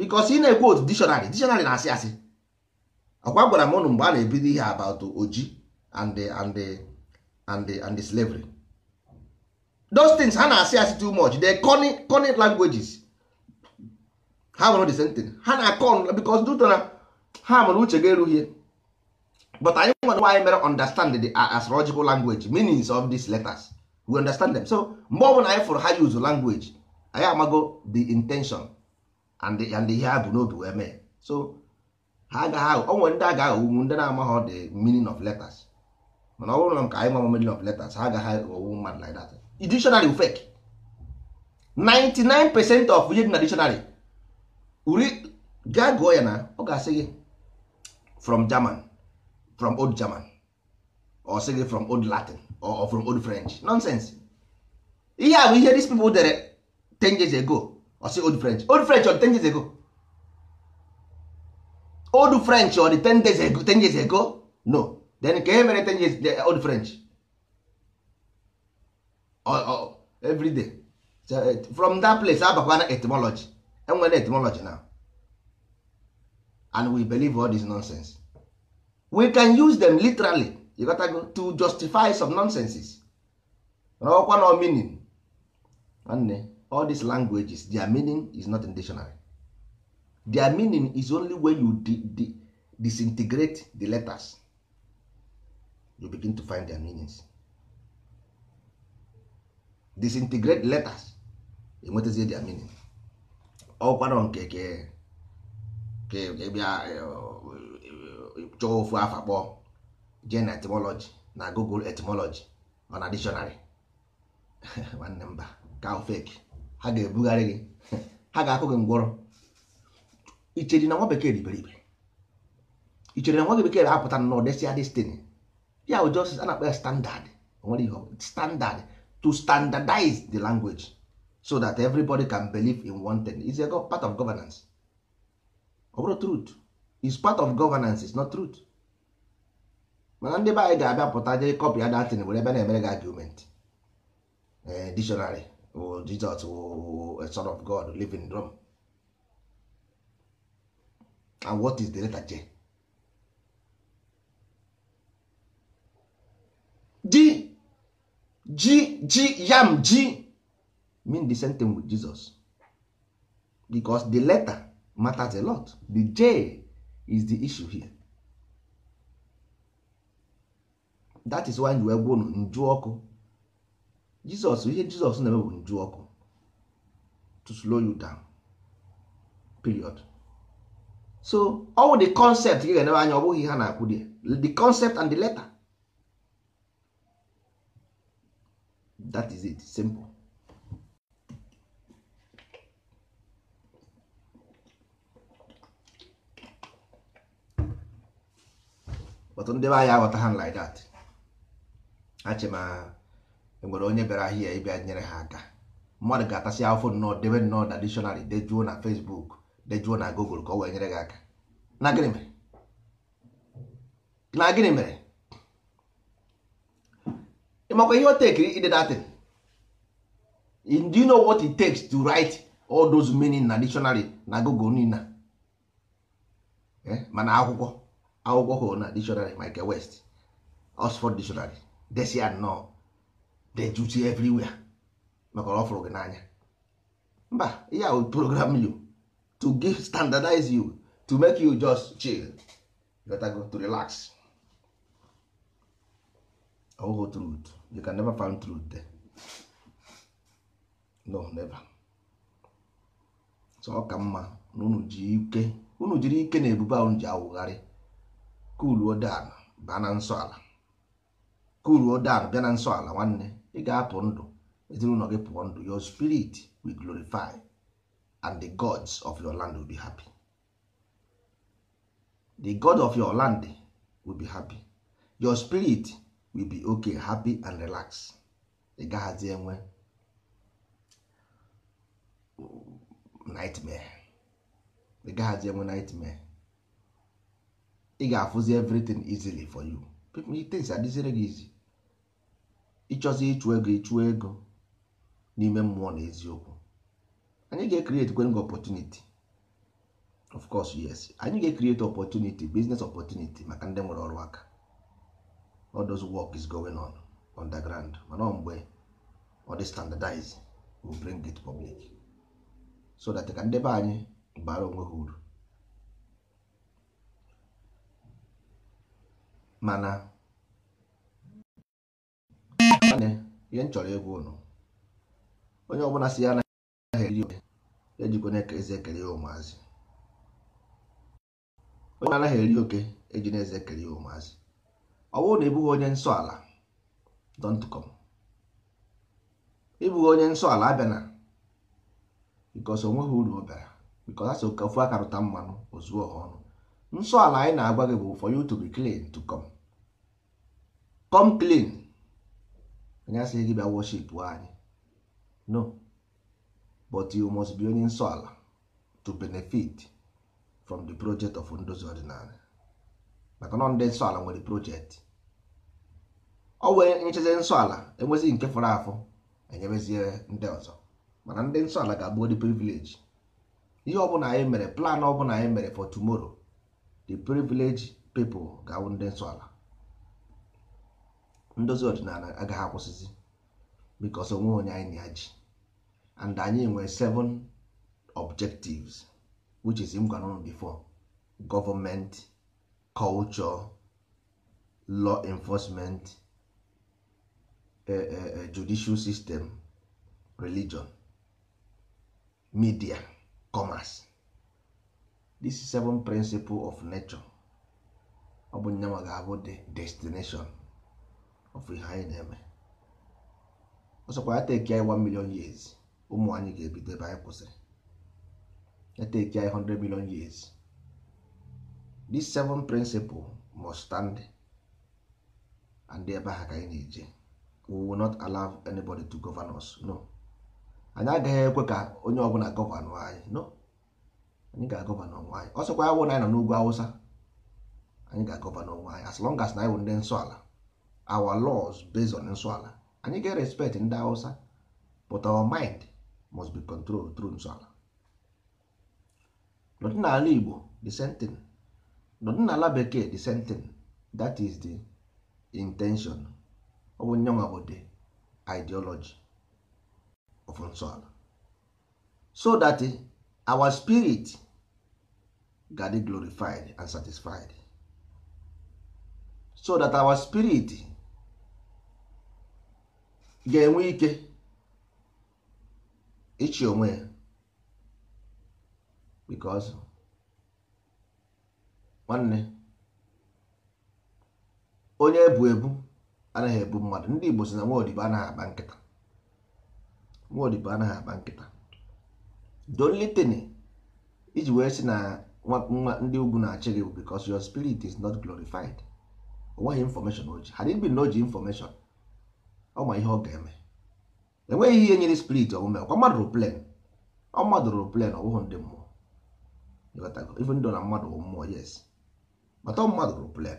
bikos ị na-ekwu otu dictionary dictionary na-asị asị ọkwa gwara m ụnụ mgbe a na-ebido ihe about oji and and and and slavery those things ha na-asị asị too much they cunning languages ha nwere the same thing ha na con because duto na ha mụrụ uche ga-erughie but anyị nwere nwa mere understand the uh, astrological language meanings of these letters we understand them so mgbe ọbụla anyị fụrụ ha use language anyị amago the intention and ihe ha bụ n'obi wee mee so ha agaghị onwe ndị a ga-aghọgbu ndị na-amaghị the meaning of letters mana ọ bụrụ na ka anyị nwa meaning of letters ha agaghị aghọgbu mmadụ like that dictionary fake 99 percent of ihe dị na dictionary uri gaa gụọ ya na ọ ga-asị gị from German from old German or sị gị from old Latin or from old French nonsense ihe a bụ ihe these people dere 10 years ago I say old french old french on 10 years ago old french on 10 days ago 10 years ago no then ka e mere 10 years the old french or, or, every day so, eh, from that place abakwana etymology enwere etymology now and we believe all this nonsense we can use them literally you gotta go to justify some nonsenses ọkwa no meaning nwanne all these languages their meaning is not in dictionary their meaning is only when you di di disintegrate the letters you begin to find their meanings disintegrate letters enwetazie their meaning ọkwanọ nke ke ka bịa e, e, chọọ ofu afa kpọọ Gen etymology na google etymology ọ na dictionary nwanne mba ka ha ga-ebugharị gị ha ga-akụ gị ngwọrọ ichere na nwa bekee dị iberibe ichere na nwa bekee apụta na ọdesịa destiny ya bụ just a na-akpọ ya standard nwere ihe standard to standardize the language so that everybody can believe in one thing is a part of governance ọ bụrụ truth is part of governance is not truth mana ndị be anyị ga-abịa pụta jee kọpị ya datin were ebe na-emere gị argument eh, dictionary jesus oh, a eh, son of God living drum and what is the letter J? G G G yam G mean the same thing with Jesus because the letter matters a lot the J is the issue here that is why you egwu unu jizọs ihe jizọs na-eme bụ nju ọkụ to slow you down period so ọwụ the concept gị ga-enebe anya ọ bụghị ha na-akwụ di the concept and the letter that is it simple but ndị be anya aghọta ha like that achịma enwere onye bịara ahịa ịbịa nyere ha aka mmadụ ga-atasị afọ nnọọ debe nnọọ na dictionary dejuo na Facebook dejuo na Google ka ọ wee nyere gị aka na gịnị mere na gịnị mere ịmakwa ihe o tekiri ide datin do you know what it takes to write all those meaning na dictionary na Google niile eh, mana akwụkwọ akwụkwọ hụrụ na dictionary Michael West Oxford dictionary desi anọ dejuti everywhere maka ọ fụrụ gị n'anya mba ya will program you to give standardize you to make you just chill better go to relax ọhụhụ truth you can never find truth there no never so ọ ka mma na unu ji ike unu jiri ike na ebube ahụ ji awụgharị kuluo dan baa na nsọ ala kuluo dan bịa na nsọ ala nwanne ị ga-apụ ndụ ezinụlọ gị pụọ ndụ your spirit will glorify and the gods of your land will be happy the god of your land will be happy your spirit will be ok happy and relax ị gaghazi enwe nightmare ị gaghazi enwe nightmare ị ga-afụzi everything easily for you people things adịzire gị easy ịchọzi ịchụ ego ịchụ ego n'ime mmụọ na eziokwu anyị ga-ekrieti kwenga opportunity of course yes anyị ga-ekrieti opportunity business opportunity maka ndị nwere ọrụ aka all those work is going on underground mana mgbe ọ dị standardize we bring it public so that ka ndị anyị bara onwe ha uru mana ihe m chọrọ ịgwa ụnụ onye ọbụla si ya anaghị eri oke ejikwana eze ekele ya ụmụazị onye anaghị eri oke eji na eze ekele ya ụmụazị ọ bụrụ na ịbụghị onye nsọ ala don't come ịbụghị onye nsọ ala abịana because onweghị uru ọ bịara because asị ofu aka rụta mmanụ ozuo ha ọnụ nsọ ala anyị na-agwa gị bụ for you to be clean to come anyị asịghị gị bịa worship anyị no but you must be onye nsọ ala to benefit from the project of ndozi ọdịnala maka nọ ndị nsọ ala nwere project ọ wee nchezi nsọ ala enwezighi nke fọrọ afọ enyebezie ndị ọzọ mana ndị nsọ ala ga-abụ the privilege ihe ọbụla anyị mere plan ọbụla anyị mere for tomorrow the privilege people ga-awụ ndị nsọ ala ndozi ọdịnala agaghị akwụsịzi because onwe onye anyị na ya and anyị nwere seven objectives which is m gwara before government culture law enforcement eh, eh, eh, judicial system religion media commerce this seven principle of nature ọ bụ nyanwa ga-abụ the destination of ihe anyị na-eme ọsọkwa ya teki anyị 1 million years ụmụ anyị ga-ebido ebe anyị kwụsịrị ya teki anyị 100 million years these seven principles must stand and ebe ha ka anyị na-eje we will not allow anybody to govern us no anyị agaghị ekwe ka onye ọbụla gọvanọ anyị no anyị ga-agọvanọ onwe anyị ọsọkwa ya wụ na anyị nọ n'ugwu awụsa anyị ga-agọvanọ onwe anyị as long as na anyị wụ ndị nsọ ala our laws based on nsọala anyị ga-respect ndị Hausa but our mind must be controlled through nsọala n'ala Igbo the same thing n'ala bekee the same thing that is the intention ọ bụ nyanwa bụ the ideology of nsọala so that our spirit ga-adị glorified and satisfied so that our spirit ga-enwe ike ịchị onwe ya because nwanne onye ebu ebu anaghị ebu mmadụ ndị Igbo si na nwaodibo anaghị akpa nkịta nwaodibo anaghị akpa nkịta dolitini iji wee sị na nwa ndị ugwu na-achị gị because your spirit is not glorified o nweghị information o ji ha dịbi na o ji ọ ma ihe ọ ga-eme enweghị ihe nyere spirit omume ọkwa mmadụ rụ plen ọ mmadụ rụ plen ọ bụghị ndị mmụọ even though na mmadụ bụ mmụọ yes bata mmadụ rụ plen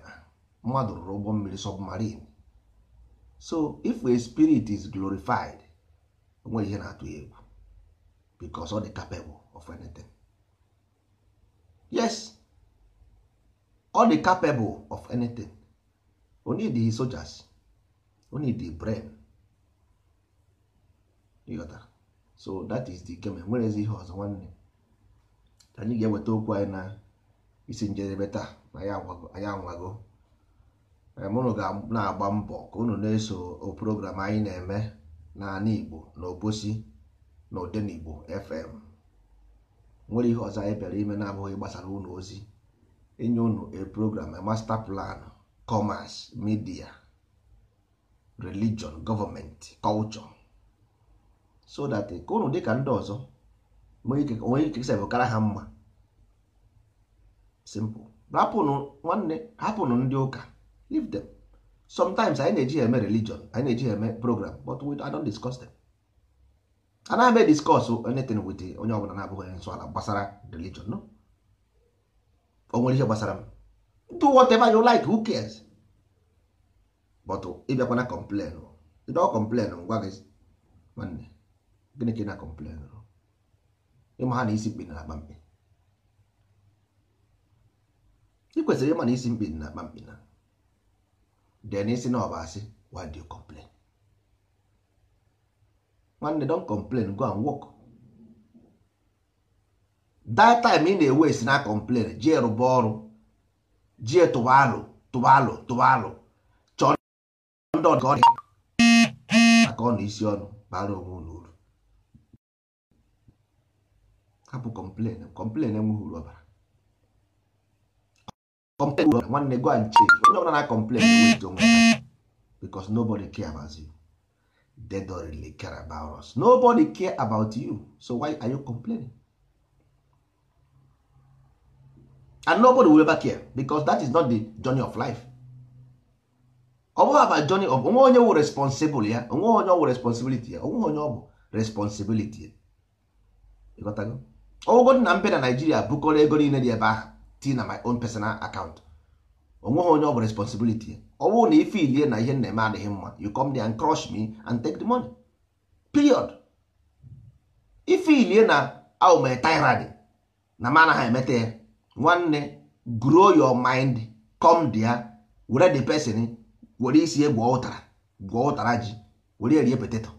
mmadụ rụrụ ụgbọ mmiri submarine so if a spirit is glorified o nwere ihe na-atụ ya egwu because ọ dị capable of anything yes ọ dị capable of anything o need sojas. need the brain so that is the game ihe ọzọ nwanne anyị ga-eweta okwu anyị na isi njedebe taa na anyị anwago mụnụ ga na-agba mbọ ka unu na-eso program anyị na-eme naanị Igbo na Obosi na Odenigbo FM nwere ihe ọzọ anyị bịara ime na-abụghị gbasara ụlọ ozi enye unu a program a master plan commerce media religion government culture so that ka ụnụ dịka ndị ọzọ onwe ike kara ha mma simple hapụnụ nwanne hapụnụ ndị ụka leave them sometimes anyị na-eji eme religion anyị na-eji eme program but we I don't discuss them na m discuss anything with onye ọbụla na-abụghị onye nsọ ala gbasara religion no o nwere ihe gbasara m do whatever you like who cares but ịbịakwana oh, complain ndị ọ kọmplen ngwa gị nwanne gịnị ka ị na-akọmplen oh? ịma ha na isi mkpi na akpa mkpi ị kwesịrị ịma na isi mkpi na akpa mkpi na den isi na ọba asị why do you complain nwanne don complain go and work that time ị na-ewe esi na complain jee rụba ọrụ jee tụba alụ tụba alụ tụba alụ ndị ọdụ ọdị aka ọ na isi ọnụ bara onwe ụlọ uru hapụ kọmplen kọmplen enweghị uru ọbara kọmplen uru nwanne gwa nche onye ọbụla na kọmplen enweghị onwe because nobody care about you they don't really care about us nobody care about you so why are you complaining and nobody will ever care because that is not the journey of life ọ bụghị aba joni ọ bụ onwe onye wụ responsibụl ya onwe onye ọ wụ responsibility ya onwe onye ọ bụ responsibility ya ọgwụgwọ na mbe na Naijiria bụkọrọ ego niile dị ebe ahụ ti na my own personal account onweghị onye ọ bụ responsibility ya ọ bụrụ na ife ilie na ihe na-eme adịghị mma you come there and crush me and take the money period ife ilie na aụma tirade na m anaghị emeta ya nwanne grow your mind come there were the person were isi ye gwọọ ụtara gwọọ ụtara ji were rie poteto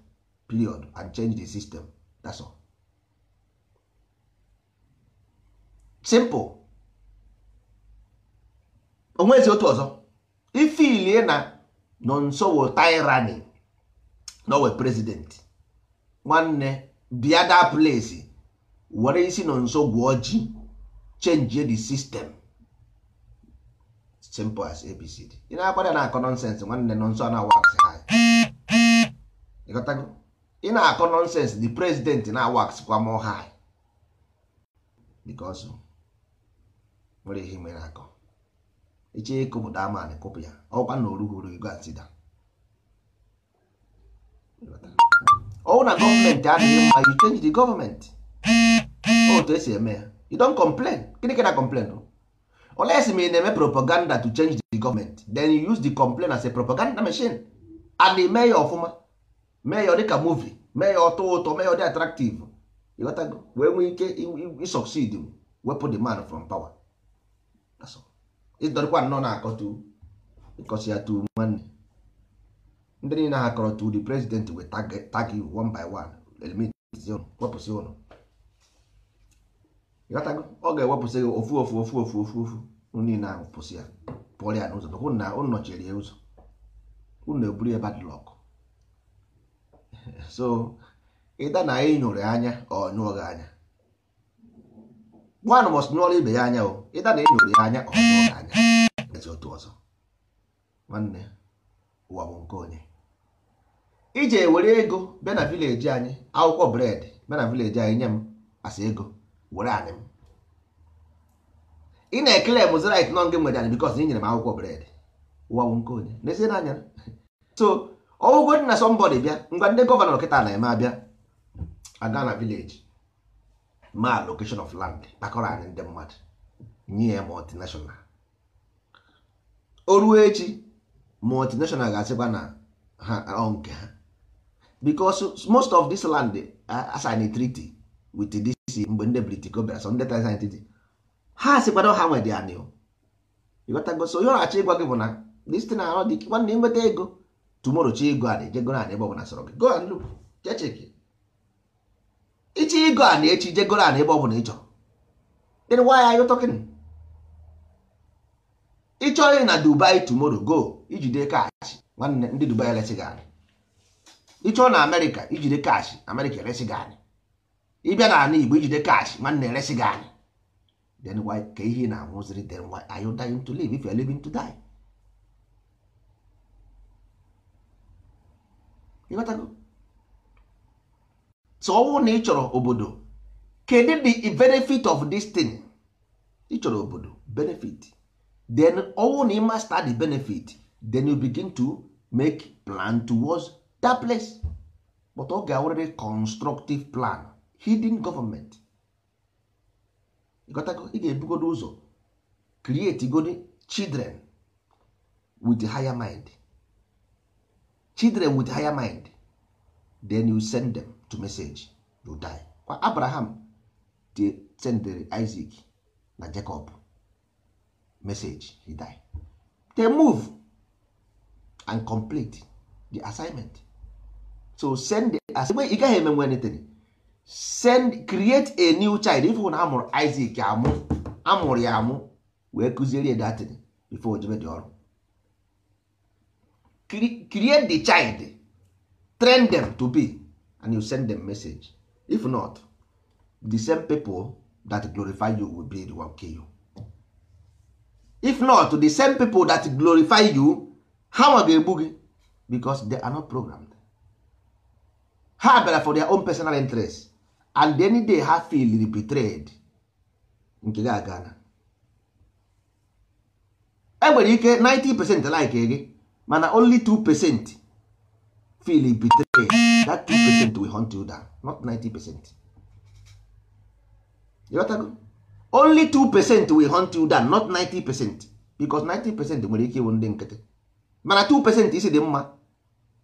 period and change the system that's all simple onwezi otu ọzọ ifilie na nọ nso wo tyranny nowe president nwanne bịada place were isi nọ nso gwọọ ji change the system simple as abcd ị na-akwada na akọ nọnsensị nwanne nọnsọ a na-awa aksị high ịghọtago ị na-akọ nọnsensị the president na-awa aksị kwa mọ high because nwere ihe mere akọ iche ịkụpụta amanị kụpụ ya ọkwa na orughuru ego atida ọwụ na gọọmenti adịghị mma you change the gọọmenti otu esi eme ya you don complain gịnị ka na complain o unless ma ị na-eme propaganda to change the government then you use the complaint as a propaganda machine and mee ya ọfụma mee ya dịka movie mee ya ọtọ ụtọ mee ya dị attractive ịghọtago wee nwee ike ịsucceed wepụ the man from power ịdọrịkwa nnọọ na-akọtu ịkọsi ya tu nwanne ndị niile ha kọrọ tu the president wee tag you one by one elimit wepụsị ụlọ ịghọtago ọ ga-ewepụsị gị ofu ofu ofu ofu ofu ofu niile ahụ pụsị ya pụọrọ ya n'ụzọ hụ na ụnụ nọchiri ya ụzọ ụnụ eburu ya badlọk so ịda na anyị nyụrụ anya ọ nyụọ gị anya nwanụ mọs nyụọrọ ibe ya anya o ịda na ịnyụrụ ya anya ọ nyụọ gị anya ezi otu ọzọ nwanne ụwa bụ nke onye ije were ego bịa na vileji anyị akwụkwọ bred bịa na vileji anyị nye m asa ego were anị m ị na-ekele m zrit nọ nke mgbede anyị na ị nyere m akwụkwọ bred ụwa nke onye n'ezie n'anya so ọwụgwọ dị na sọmbọdị bịa ngwa ndị gọvanọ kịta na-eme abịa aga na vileji ma location of land kpakọrọ anyị ndị mmadụ nye ya multinational o echi multinational ga-asịkwa na ha nke ha because most of this land assign a treaty with this isi mgbe ndị british bịara sọ ndị taisanititi ha sịkwado ha nwede ya n'iwu ịghọtago so onye ọnachi ịgwa gị bụ na dịsite na ahụ dị nwanne nweta ego tumoro chi ego a na-ejego na ebe ọbụla sọrọ gị go and look cheche checheki ịchị ego a na-echi jegoro a na ebe ọbụla ị chọrọ then why are you talking ị na dubai tomorrow go ijide kaachị nwanne ndị dubai eresi gị anyị ịchọọ na amerịka ijide kaachị amerịka eresi gị anyị ịbịa na ala Igbo ijide kash nwanne eresi gị anyị why ka ihe na-anwụziri then why are you dying to live if you are living to die ịghọtago so na ị chọrọ obodo kedu the benefit of this thing ị chọrọ obodo benefit then ọnwụ na ị master the benefit then you begin to make plan towards that place but ọ ga-awụrịrị constructive plan hidden government ịgotago ị ga-ebugodo ụzọ create godi children with higher mind children with higher mind then you send them to message you die kwa abraham sendere isaac na jacob message he die they move and complete the assignment so send the assignment ị gaghị emenwe anything send create a new child if ifụ na amụrụ Isaac amụ amụrụ ya amụ wee kụziere datin before ojebe dị ọrụ create the child train them to be and you send them message if not the same people that glorify you will be the one kill you if not the same people that glorify you ha nwa ga-egbu gị because they are not programmed ha bịara for their own personal interest and any day ha feel betrayed nke gị agana enwere ike 90 percent like gị mana only 2 percent feel betrayed that 2 percent will hunt you down not 90 percent only 2 percent will hunt you down not 90 percent because 90 percent nwere ike ịwụ ndị nkịtị mana 2 percent isi dị mma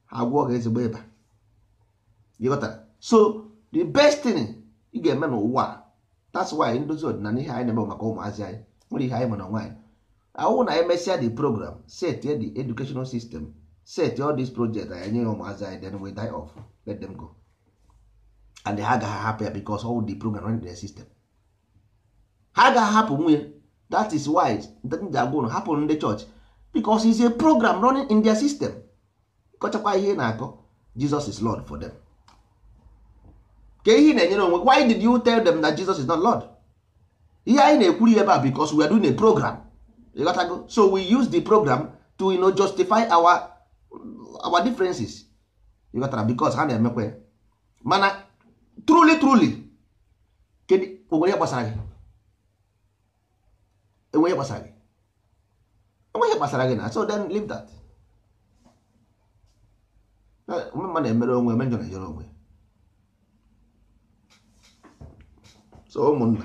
ha gwụọ gị ezigbo ịba so the best thing ị ga-eme n'ụwa that's why ndozi ọdịnala ihe anyị na-eme maka ụmụazị anyị nwere ihe anyị ma na nwaanyị ahụhụ na emesịa the program set the educational system set all these projects anyị nye ya ụmụazị anyị then we die off let them go and ha agaghị ahapụ ya because all the program in their system ha agaghị ahapụ nwunye that is why ndị agwa ụlọ hapụ ndị chọọchị because is a program running in their system kọchakwa ihe na-akọ Jesus is Lord for them. ka ihe na-enyere onwe why did you tell them that Jesus is not Lord ihe anyị na ekwuru ebe a because we are doing a program ịghọtago so we use the program to you know, justify our our differences ịghọtara because ha na-emekwe mana truly truly kedu onwere gbasara gị enweghị gbasara gị enweghị gbasara gị na so then leave that mma na-emere onwe eme na-ejere onwe so ụmụnna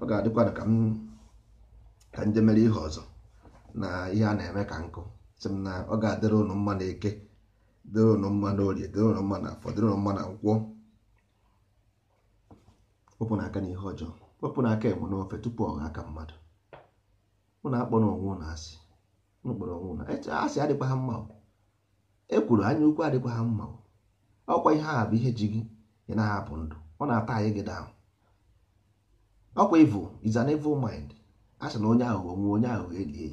ọ ga adịkwa ka m ka nje mere ihe ọzọ na ihe a na-eme ka nkụ sị m na ọ ga-adịrị ụnụ mma na eke dịrị ụnụ mma na orie dịrị ụnụ mma na afọ dịrị ụnụ mma na nkwọ wepụ na aka na ihe ọjọọ wepụ na aka enwe n'ofe tupu ọ aka mmadụ na akpọrọ onwe na asị ụnụ kpọrọ onwe ụnụ asị adịkwa ha mma ekwuru anya ukwu adịkwa ha mma ọkwa ihe a bụ ihe ji gị ị na-ahapụ ndụ ọ na-ata anyị gị daahụ ọkwa evil is an evil mind a sị na onye aghụghọ nwe onye aghụghọ elie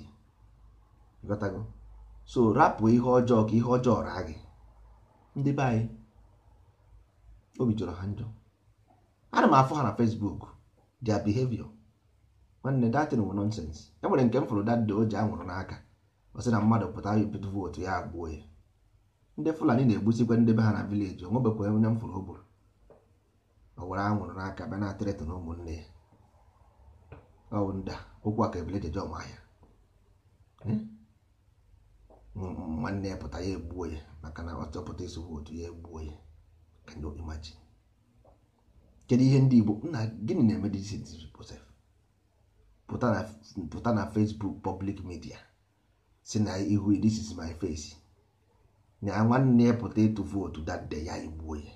ya so rapụ ihe ọjọọ ka ihe ọjọọ raa gị ndị be anyị obi jọrọ ha njọ ana m afọ ha na Facebook their behavior nwanne datin bụ nonsens e nwere nke m fụrụ dadị o ji anwụrụ n'aka ọ na mmadụ pụta bipụta vootu ya agbuo ya ndị Fulani na-egbusikwa ndị be ha na vileji onwebekwa onye m fụrụ o gburu were anwụrụ n'aka bịa na-atịrịtụ na ụmụnne ya ọwụnda okwu a ka ebele jeje ọma ya hmm? nwanne ya pụta ya egbuo ya maka na ọ chọpụta ịsụ otu ya egbuo ya can you imagine kedu ihe ndị Igbo nna gịnị na-eme pụta na Facebook public media si na ihu this is my face na nwanne ya pụta ịtụ vootu that ya egbuo ya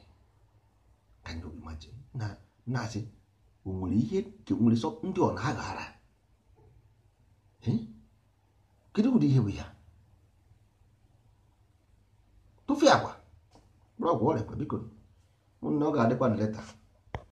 can you imagine na-asị o nwere ihe nwere sọ ndị ọ na-aghara kedu ụdị ihe bụ ya tụfee agwa ọgwụ ọrịa biko mụnna ọ ga-adịkwa na leta